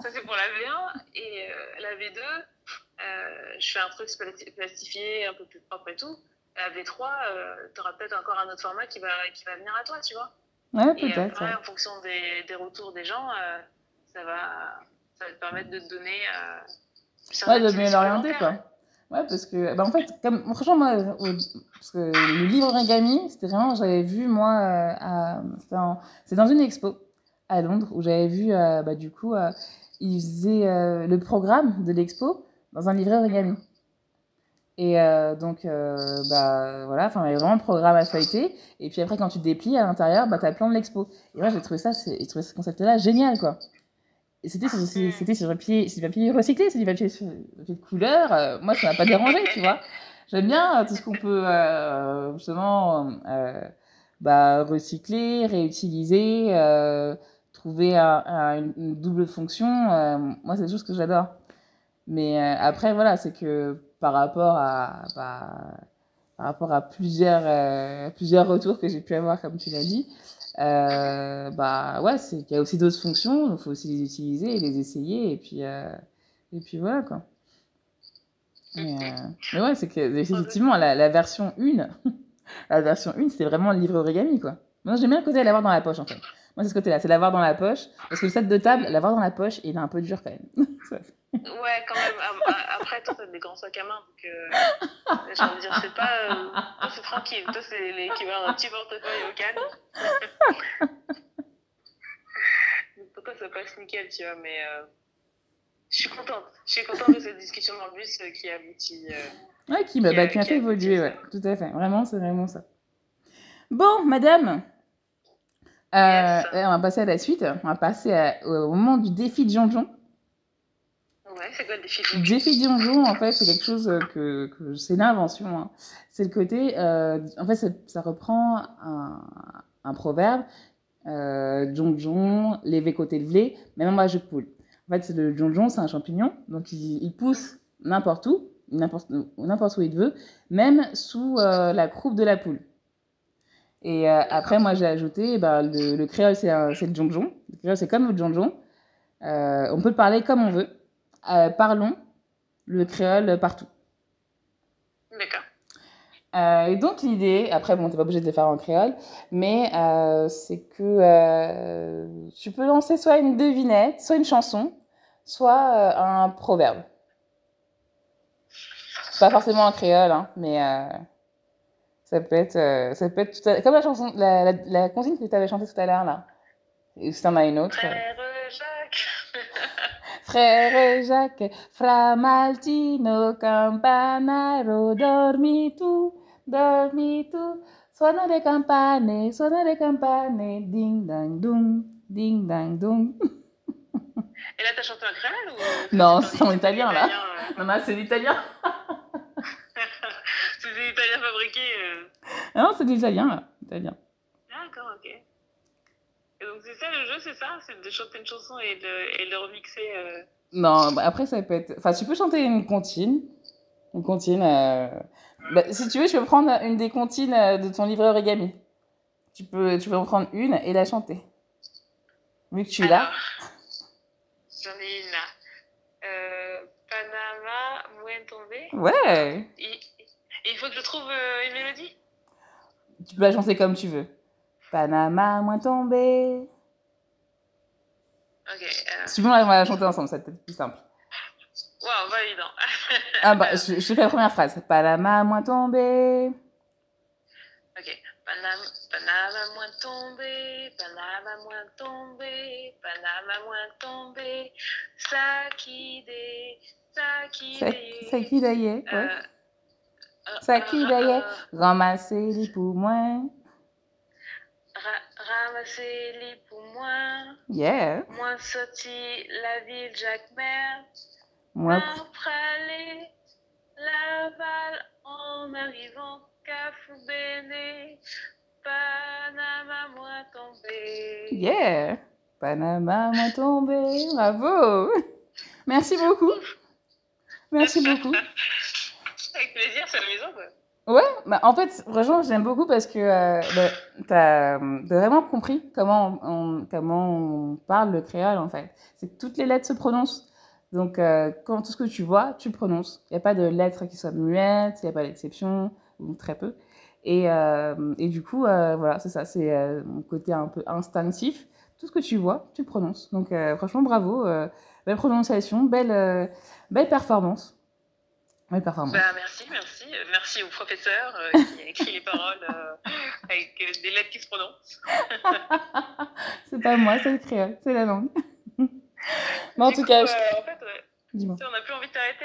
Ça, c'est pour la V1. Et euh, la V2, euh, je fais un truc plastifié, un peu plus propre et tout. La V3, tu euh, auras peut-être encore un autre format qui va, qui va venir à toi, tu vois. Ouais, peut-être. Ouais. En fonction des, des, retours des gens, euh, ça, va, ça va te permettre de te donner euh, Ouais, de mieux l'orienter, quoi. Ouais, parce que, bah, en fait, comme, franchement, moi, parce que le livre origami, c'était vraiment, j'avais vu, moi, euh, c'est dans une expo à Londres où j'avais vu, à euh, bah, du coup, à euh, ils faisaient euh, le programme de l'expo dans un livret origami. Et donc, bah, voilà, enfin, il y avait vraiment un programme à feuilleter. Et puis après, quand tu déplies à l'intérieur, bah, tu as le plan de l'expo. Et moi, j'ai trouvé ça, j'ai trouvé ce concept-là génial, quoi. c'était ah, sur, c'était sur papier, c'est du papier recyclé, c'est du papier, sur, de couleur. Euh, moi, ça m'a pas dérangé, tu vois. J'aime bien euh, tout ce qu'on peut euh, justement euh, bah, recycler, réutiliser, euh trouver un, un, une double fonction. euh moi, c'est des choses que j'adore. Mais euh, après, voilà, c'est que par rapport à, bah, par rapport à plusieurs, euh, plusieurs retours que j'ai pu avoir, comme tu l'as dit, Euh, bah ouais, il y a aussi d'autres fonctions, il faut aussi les utiliser et les essayer, et puis, euh, et puis voilà quoi. Mais, euh, mais ouais, c'est que effectivement, la, la version 1, la version 1, c'était vraiment le livre origami quoi. Moi, j'aime bien le côté de l'avoir dans la poche en fait. Moi, c'est ce côté-là, c'est l'avoir dans la poche. Parce que le set de table, l'avoir dans la poche, il est un peu dur quand même. Ouais, quand même. Après, toi, t'as des grands sacs à main, donc euh, j'ai envie de dire, c'est pas. Euh, c'est tranquille. Toi, c'est l'équivalent d'un petit portefeuille au canne. pour toi, ça passe nickel, tu vois, mais euh, je suis contente. Je suis contente de cette discussion dans le bus euh, euh, qui a abouti. ouais, qui, bah, qui, bah, qui a, fait évoluer, ouais, tout à fait. Vraiment, c'est vraiment ça. Bon, madame. Yes. Euh, on va passer à la suite. On va passer à, au moment du défi de Jean-Jean. Ouais, c'est quoi le défi donjon Le défi donjon, en fait, c'est quelque chose euh, que, que c'est une invention. Hein. C'est le côté. Euh, en fait, ça, ça reprend un, un proverbe euh, donjon, l'évé côté levé, même moi je poule. En fait, le donjon, c'est un champignon, donc il, il pousse n'importe où, n'importe où il veut, même sous euh, la croupe de la poule. Et euh, après, moi j'ai ajouté, eh ben, le, le, créole, c'est le donjon. Le créole, c'est comme le donjon. Euh, on peut le parler comme on veut. euh, parlons le créole partout. D'accord. Euh, et donc l'idée, après bon, t'es pas obligé de le faire en créole, mais euh, c'est que euh, tu peux lancer soit une devinette, soit une chanson, soit euh, un proverbe. Pas forcément en créole, hein, mais euh, ça peut être, ça peut être tout à... comme la chanson, la, la, la consigne que tu avais chantée tout à l'heure là. Et si t'en as une autre. Frère, frère Jacques, fra Maltino, campanaro, dormi tu, dormi tu. Suono le campane, suono le campane, ding dang dum, ding dang dum. Et là, t'as chanté en créole ou Non, c'est en italien, là. Euh... Non, non, c'est l'italien. c'est de l'italien fabriqué. Euh... Ah non, c'est l'italien, là. Italien. D'accord, ok. Et donc, c'est ça le jeu, c'est ça C'est de chanter une chanson et de, et de remixer euh... Non, bah après, ça peut être. Enfin, tu peux chanter une comptine. Une comptine. Euh... Bah, si tu veux, je peux prendre une des comptines euh, de ton livre origami. Tu peux, tu peux en prendre une et la chanter. Vu que tu l'as. J'en ai une là. Euh, Panama, Mouen tombée. Ouais. il, faut que je trouve euh, une mélodie. Tu peux la chanter comme tu veux. Panama, moins tombé. Ok. Euh... Si tu la chanter ensemble, c'est peut-être plus simple. Waouh, validant. ah bah, je, je, fais la première phrase. Panama, moins Ok. Panama, moins tombé, Panama moins tombé, Panama moins tombé, Sakide, Sakide. Sakide, ouais. Euh, euh, euh, ramasser les ramasser-les pour moi. Yeah. Moi, la ville Jacques-Mer. Moi, pralé la balle en arrivant bene Panama, moi tombé. Yeah. Panama, moi tombé. Bravo. Merci beaucoup. Merci beaucoup. Avec plaisir, c'est amusant, Ouais, bah en fait, franchement, j'aime beaucoup parce que euh, bah, tu as euh, vraiment compris comment on, on, comment on parle le créole, en fait. C'est que toutes les lettres se prononcent. Donc, euh, quand tout ce que tu vois, tu le prononces. Il n'y a pas de lettres qui soient muettes, il n'y a pas d'exception, ou très peu. Et, euh, et du coup, euh, voilà, c'est ça, c'est euh, mon côté un peu instinctif. Tout ce que tu vois, tu le prononces. Donc, franchement, bravo. belle prononciation, belle, belle performance. Oui, performance. Bah, merci, merci. Merci au professeur euh, qui a écrit les paroles euh, avec euh, des lettres qui se prononcent. c'est pas moi, c'est le créole, c'est la langue. Mais en du tout coup, cas, je... Euh, en fait, on n'a plus envie de t'arrêter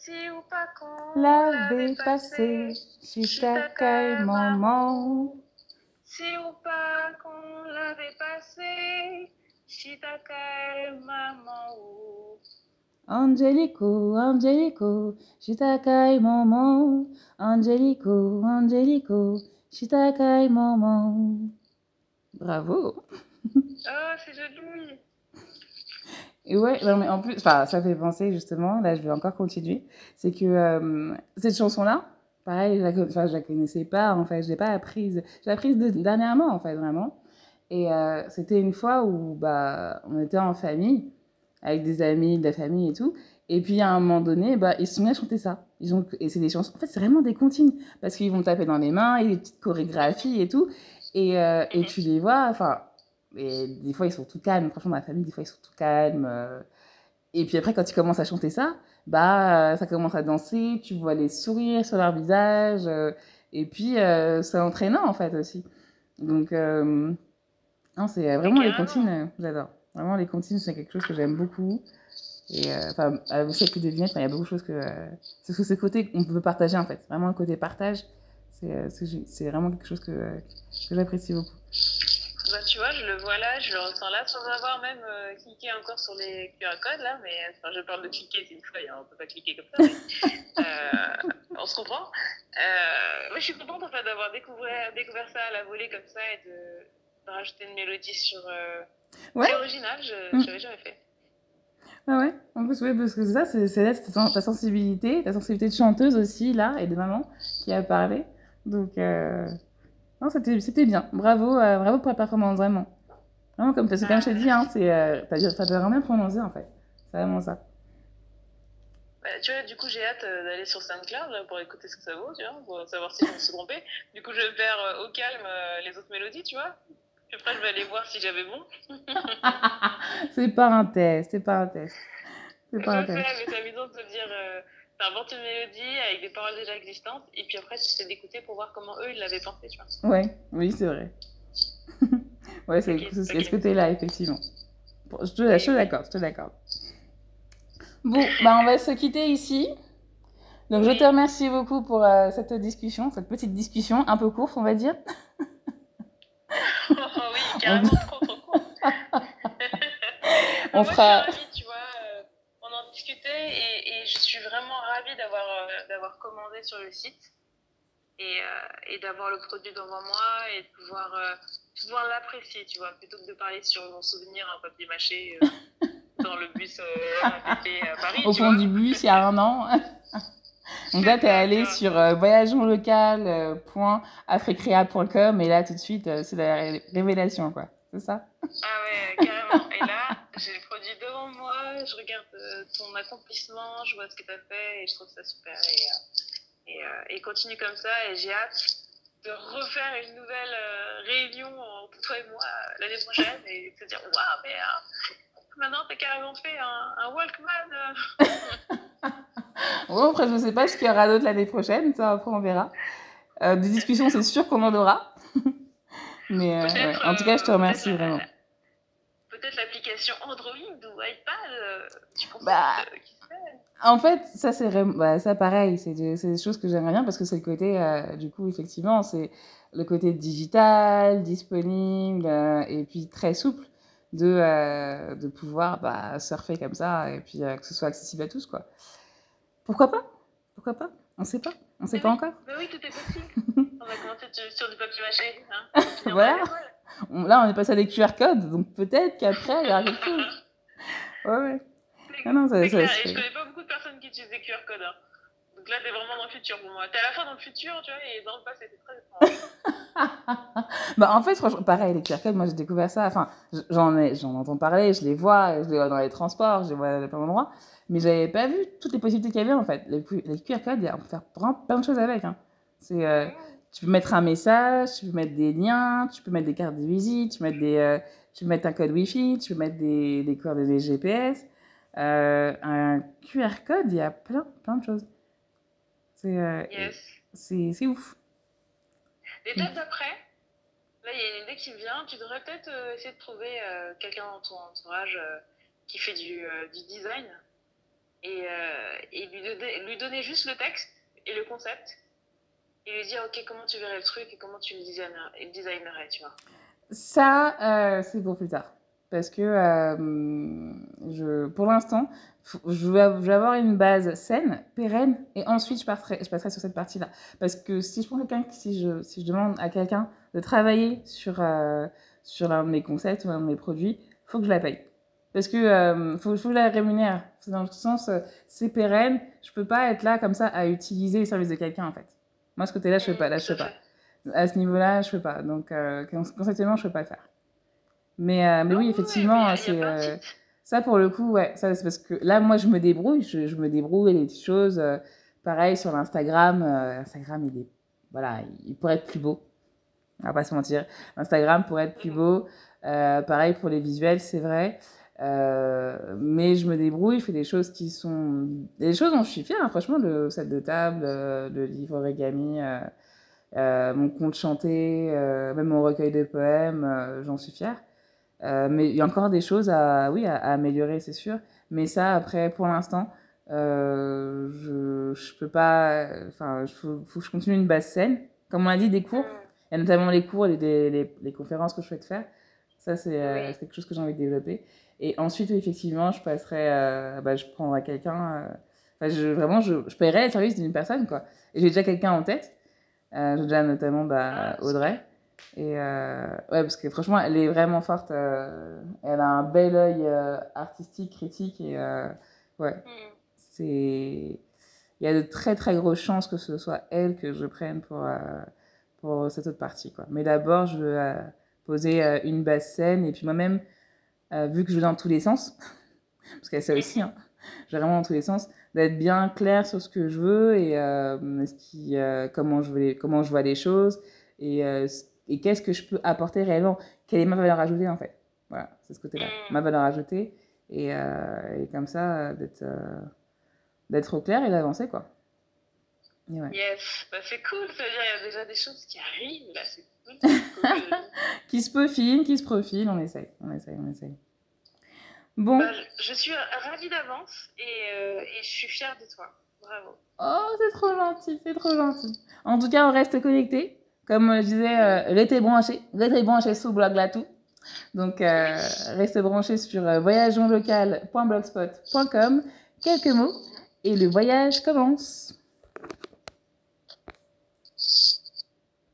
Si ou pas qu'on l'avait passé, si t'accueille maman. Si ou pas passé, si t'accueille maman. Angelico, Angelico, Angelico, Angelico, Bravo! Oh, c'est joli! Et ouais, non, mais en plus, enfin, ça fait penser justement, là je vais encore continuer, c'est que euh, cette chanson-là, pareil, je la, enfin, je la connaissais pas en fait, je l'ai pas apprise, je l'ai apprise de, dernièrement en fait, vraiment. Et euh, c'était une fois où bah, on était en famille, avec des amis, de la famille et tout, et puis à un moment donné, bah, ils se sont mis à chanter ça. Ils ont, et c'est des chansons, en fait, c'est vraiment des comptines, parce qu'ils vont taper dans les mains, et des petites chorégraphies et tout, et, euh, et tu les vois, enfin Et des fois, ils sont tout calmes. Franchement, dans la famille, des fois, ils sont tout calmes. Euh. Et puis après, quand tu commences à chanter ça, bah, euh, ça commence à danser, tu vois les sourires sur leur visage. Euh. et puis, euh c'est entraînant, en fait, aussi. Donc, euh, non, c'est vraiment les comptines, j'adore. Vraiment, les comptines, c'est quelque chose que j'aime beaucoup. Et euh, enfin, aussi avec les vignettes, il y a beaucoup de choses que. Euh, c'est ce côté qu'on peut partager, en fait. Vraiment, le côté partage, c'est vraiment quelque chose que, que j'apprécie beaucoup. Bah, tu vois, je le vois là, je le ressens là, sans avoir même euh, cliqué encore sur les QR codes, là, mais enfin, je parle de cliquer, c'est une feuille, hein, on ne peut pas cliquer comme ça, mais, euh, on se comprend. Euh, moi, je suis contente en fait, d'avoir découvert, découvert ça à la volée comme ça et de, de rajouter une mélodie sur. Euh, ouais. C'est original, je n'avais mm. mmh. jamais fait. Ah ouais, en plus, oui, parce que ça, c'est Céleste, ta sensibilité, ta sensibilité de chanteuse aussi, là, et de maman, qui a parlé. Donc, euh, Non, c'était bien. Bravo, euh, bravo pour la performance, vraiment. Vraiment, comme, as, comme je t'ai dit, hein, c'est, euh, t'as, as vraiment prononcé en fait. C'est vraiment ça. Bah, tu vois, du coup, j'ai hâte euh, d'aller sur SoundCloud là, pour écouter ce que ça vaut, tu vois, pour savoir si je me suis trompée. Du coup, je perds euh, au calme euh, les autres mélodies, tu vois. Puis après, je vais aller voir si j'avais bon. c'est pas un test, c'est pas un test. C'est pas je un test. mais c'est amusant de se dire euh, T'inventes une mélodie avec des paroles déjà existantes, et puis après, tu essaies d'écouter pour voir comment eux, ils l'avaient pensé, tu vois. Ouais, oui, c'est vrai. ouais, c'est okay, okay. ce côté-là, effectivement. Bon, je te l'accorde, je te l'accorde. Bon, bah, on va se quitter ici. Donc, oui. je te remercie beaucoup pour euh, cette discussion, cette petite discussion, un peu courte, on va dire. Oh oui, carrément trop, trop on fera. suis vraiment ravie d'avoir euh, d'avoir commandé sur le site et, euh, et d'avoir le produit devant moi et de pouvoir, euh, pouvoir l'apprécier, tu vois, plutôt que de parler sur mon souvenir en papier mâché dans le bus à Paris. Au fond vois. du bus, il y a un an. Donc là, tu es allé sur euh, et là, tout de suite, euh, c'est la ré révélation, quoi. C'est ça Ah ouais, carrément. Et là, J'ai produit devant moi, je regarde euh, ton accomplissement, je vois ce que tu as fait et je trouve ça super. Et, euh, et, euh, et continue comme ça et j'ai hâte de refaire une nouvelle réunion entre toi et moi l'année prochaine et te dire Waouh, mais maintenant t'as carrément fait un, un Walkman Bon, après, je ne sais pas ce qu'il y aura d'autre l'année prochaine, ça après on verra. Euh, des discussions, c'est sûr qu'on en aura. mais euh, ouais. en tout cas, je te remercie vraiment. peut-être l'application Android ou iPad. tu euh, bah, que, euh, en fait, ça, c'est bah, ça pareil, c'est des, des choses que j'aimerais bien parce que c'est le côté, euh, du coup, effectivement, c'est le côté digital, disponible euh, et puis très souple de, de pouvoir bah, surfer comme ça et puis que ce soit accessible à tous, quoi. Pourquoi pas Pourquoi pas On ne sait pas. On ne sait mais pas oui, encore. Mais oui, tout est possible. on va commencer sur du papier mâché. Hein. voilà. Là, on est passé à des QR codes, donc peut-être qu'après, il y aura quelque chose. Ouais, ouais. Ah non, ça, clair. ça, Et je connais pas beaucoup de personnes qui utilisent des QR codes. Hein. Donc là, t'es vraiment dans le futur pour moi. T'es à la fois dans le futur, tu vois, et dans le passé, c'est très étrange. bah, en fait, franchement, pareil, les QR codes, moi j'ai découvert ça. Enfin, j'en, ai, j'en entends parler, je les vois, je les vois dans les transports, je les vois à plein d'endroits. Mais j'avais pas vu toutes les possibilités qu'il y avait en fait. Les, les QR codes, on peut faire plein, plein de choses avec. Hein. C'est. Euh... Mmh Tu peux mettre un message, tu peux mettre des liens, tu peux mettre des cartes de visite, tu peux mettre, des, euh, tu peux mettre un code Wi-Fi, tu peux mettre des, des coordonnées GPS, euh, un QR code, il y a plein, plein de choses. C'est euh, yes. ouf. Et Les dates après, là, il y a une idée qui me vient. Tu devrais peut-être euh, essayer de trouver euh, quelqu'un dans ton entourage euh, qui fait du, du design et, et lui, donner, lui donner juste le texte et le concept et lui dire ok comment tu verrais le truc et comment tu le designerais, tu vois. Ça, euh, c'est pour plus tard. Parce que euh, je, pour l'instant, je vais avoir une base saine, pérenne, et ensuite je, passerai, je passerai sur cette partie-là. Parce que si je prends quelqu'un, si je, si je demande à quelqu'un de travailler sur, euh, sur l'un de mes concepts ou un de mes produits, il faut que je la paye. Parce que euh, faut, faut que je la rémunère. Dans le sens, euh, c'est pérenne, je ne peux pas être là comme ça à utiliser les services de quelqu'un en fait. Moi, ce côté-là, je ne peux pas. Là, je peux pas. À ce niveau-là, je ne peux pas. Donc, euh, conceptuellement, je ne peux pas faire. Mais, euh, mais oui, effectivement, ouais, c'est. Euh, ça, pour le coup, ouais, ça, c'est parce que là, moi, je me débrouille. Je, je me débrouille les petites choses. Euh, pareil sur l'Instagram. Euh, Instagram, il est. Voilà, il pourrait être plus beau. On va pas se mentir. Instagram pourrait être plus mm. beau. pareil pour les visuels, c'est vrai. Euh, mais je me débrouille, je fais des choses qui sont. Des choses dont je suis fière, hein, franchement, le set de table, euh, le livre origami, euh, euh, mon conte chanté, euh même mon recueil de poèmes, euh, j'en suis fière. euh mais il y a encore des choses à, oui, à, à améliorer, c'est sûr. Mais ça, après, pour l'instant, euh, je, je peux pas. Enfin, il faut, faut, que je continue une basse scène. Comme on a dit, des cours. Mm. Il y a notamment les cours, les, les, les, les conférences que je souhaite faire. Ça, c'est oui. quelque chose que j'ai envie de développer. Et ensuite, effectivement, je passerai, euh, bah, je prendrai quelqu'un. Euh, enfin, je, vraiment, je, je paierai les services d'une personne, quoi. Et j'ai déjà quelqu'un en tête. Euh, j'ai déjà notamment bah, ah, Audrey. Et euh, ouais, parce que franchement, elle est vraiment forte. Euh, elle a un bel œil euh, artistique, critique. Et euh, ouais, mm. c'est. Il y a de très très grosses chances que ce soit elle que je prenne pour, pour cette autre partie. Quoi. Mais d'abord, je veux poser une basse scène et puis moi-même Euh, vu que je vais dans tous les sens, parce qu'il y a ça aussi, hein, je vais vraiment dans tous les sens, d'être bien clair sur ce que je veux et euh, ce qui, euh, comment, je veux comment je vois les choses et, euh, et qu'est-ce que je peux apporter réellement, quelle est ma valeur ajoutée en fait. Voilà, c'est ce côté-là, mm. ma valeur ajoutée et, euh, et comme ça, d'être, d'être au clair et d'avancer quoi. Ouais. Yes, bah, c'est cool, ça veut dire il y a déjà des choses qui arrivent là, c'est cool. cool. qui se peaufinent, qui se profilent, on essaye, on essaye, on essaye. Bon. Bah, je suis ravie d'avance et, euh, et, je suis fière de toi. Bravo. Oh, c'est trop gentil, c'est trop gentil. En tout cas, on reste connecté Comme je disais, euh, restez branchés, restez branchés sous Blog tout Donc, euh, restez branchés sur euh, voyageonlocal.blogspot.com. Quelques mots et le voyage commence.